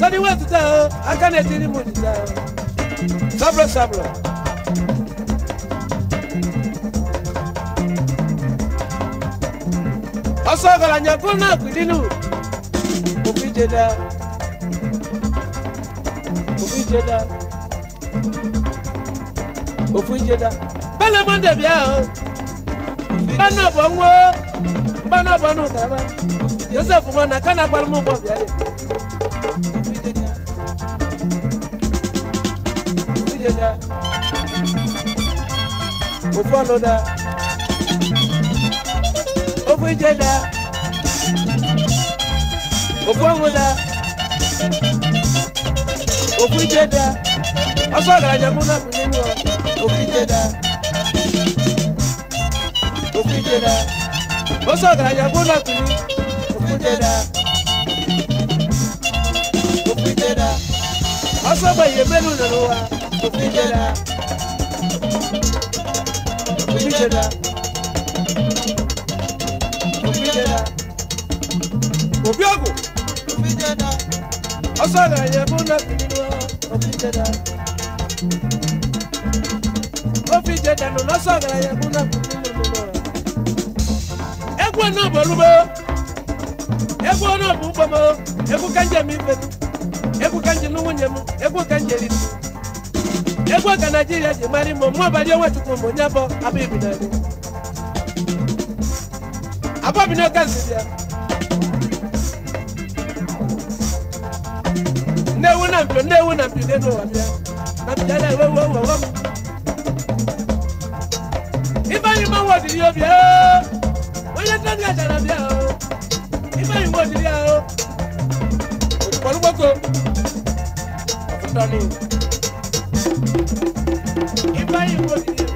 tọdị wetụta o aka na-etiri m onyinye sabro sabro ọsọ ọgaranya kwụ na akwụdinu obi jeda obi jeda ofu jeda bẹ́ẹ̀ lọ́mọ dẹ̀bi ẹ̀ o bẹ́ẹ̀ náà bọ̀ ń wo bẹ́ẹ̀ náà bọ̀ kàrà Joseph Mwana kana kwa lumu kwa vyale. Ujeja. Ufano da. Ujeja. Ufangu da. Ujeja. Afaga jamuna kuninwa. Ujeja. Ujeja. Ujeja. Osoga jamuna kuninwa dẹ́dá. òfin dẹ́dá. ọsọ́gbà yìí mẹ́nu nàró wa. òfin dẹ́dá. òfin dẹ́dá. òfin dẹ́dá. òbí ọ̀gùn. òfin dẹ́dá. ọsọ́gbà yìí mẹ́nu nàró wa. òfin dẹ́dá. òfin dẹ́dá lọ́sọ̀gbà yìí mẹ́nu nàró wa. ẹgbẹ́ náà bọ̀ ló egwu ọnọdụ ụgbọm egwu ka njem ifetu egwu ka nwunye m egwu ka njeri egwu ka naijiria ji mara imo mụ ọbali onwechukwu m onye bụ na mpio nnewu na mpio na mpio na ewe m mmanwụ obi onye m ko afutani ibayi wo didi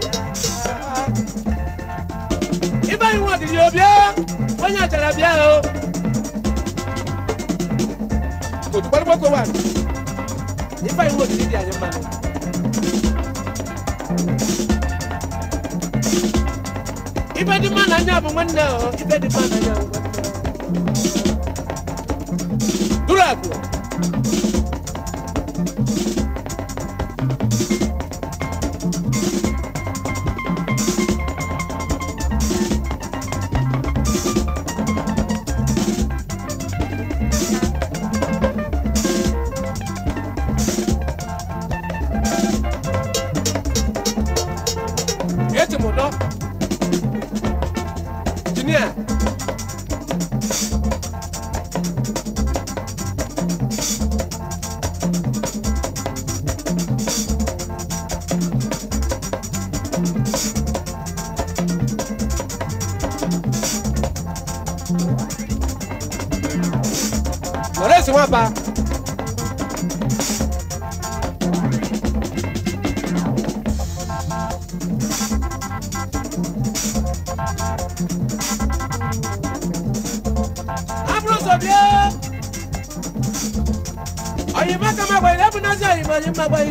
ibayi wo didi obi ẹ wọn yàn jara bi ẹ o kò tó gbọdọ gbọdọ wà ibayi wo didi di àyè mma ni. ibe di mana nya bụ nwanne ọ ibe di mana nya bụ nwanne ọ duru abụọ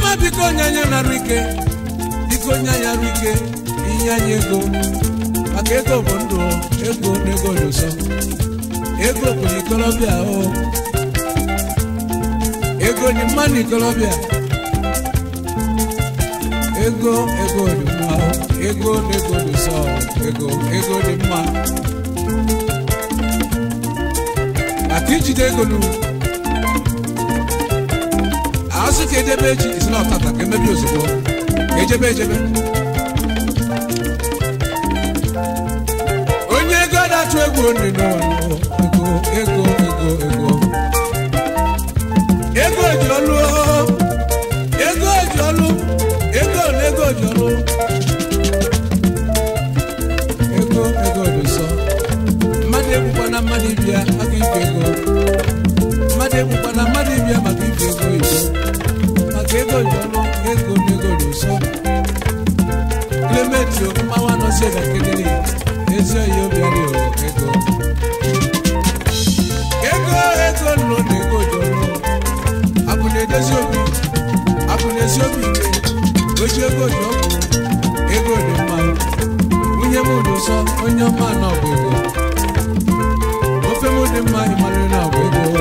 chioma biko nye anyị narụ ike biko nye anyị arụ ike inye anyị ego maka ego bụ ndụ ego na ego dị ụsọ ego bụ n'ikolobịa o ego dị mma n'ikolobịa ego ego dị mma ego na ego dị ụsọ ego ego dị mma maka ijide ego n'ugwu asị ka edebe echi isi na ọtata ka emebi ozugbo ka ejebe ejebe onye ego na-atụ egwu nri n'ụwa ego ego ego ego ji ego ji ọlụ ego ego ji ọlụ ego ego dị nsọ mmadụ mmadụ ibia maka ego mmadụ tolo ego nego luso Clementi o mawa no se da kedele Ezio yo biari o ego Ego ego lo nego jolo Abune desiobi Abune siobi Oje ego Ego ni ma Unye mu luso onye ma na ogo Ofe mu ni ma imanu na ogo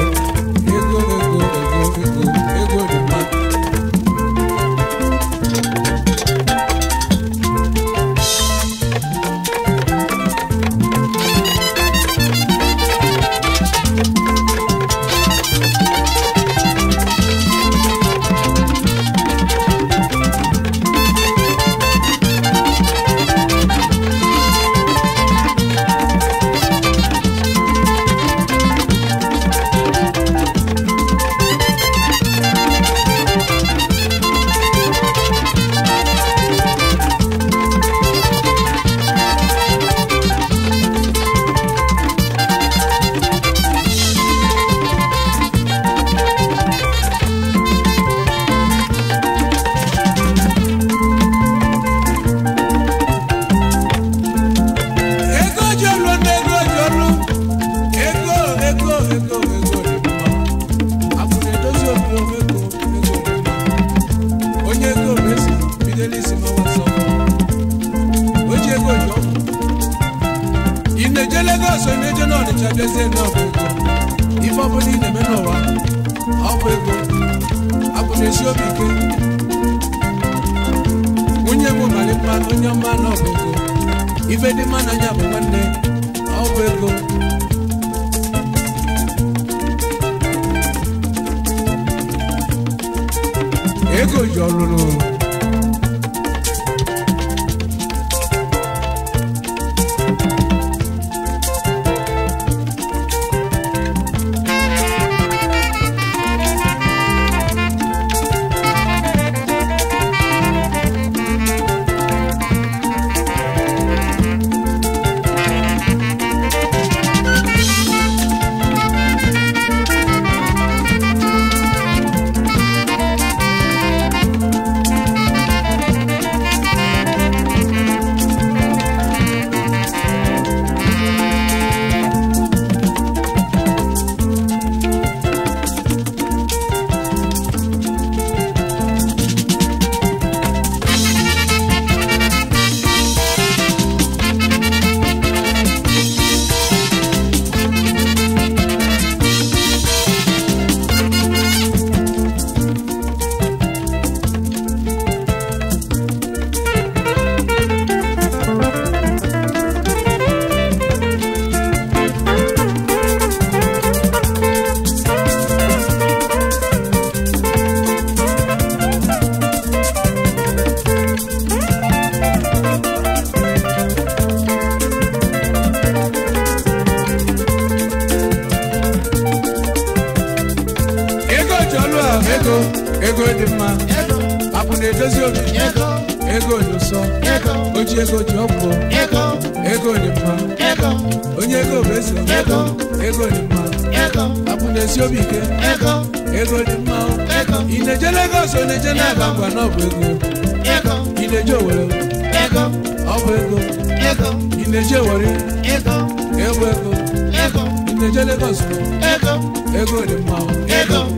ego ego dị mma Apụ na-edozi obi ego dị ụsọ oji ego ji ọgwụ ego dị mma onye ego bụ eze ego dị mma Apụ na-ezi obi ike ego dị mma ị na-eje ego ọ na-eje n'aba ngwa na ọ bụ ego ị na-eje Owerri ọ bụ ego ị na-eje Owerri ego ego ị na-eje Lagos ego dị mma ego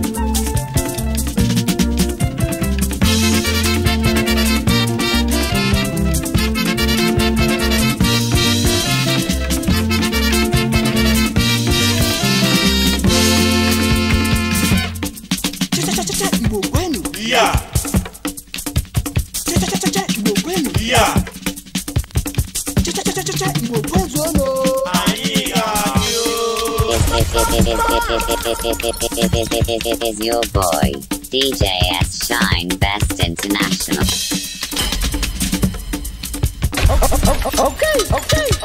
It is your boy, DJ S. Shine Best International. Okay, okay.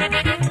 Müzik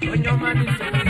When your man is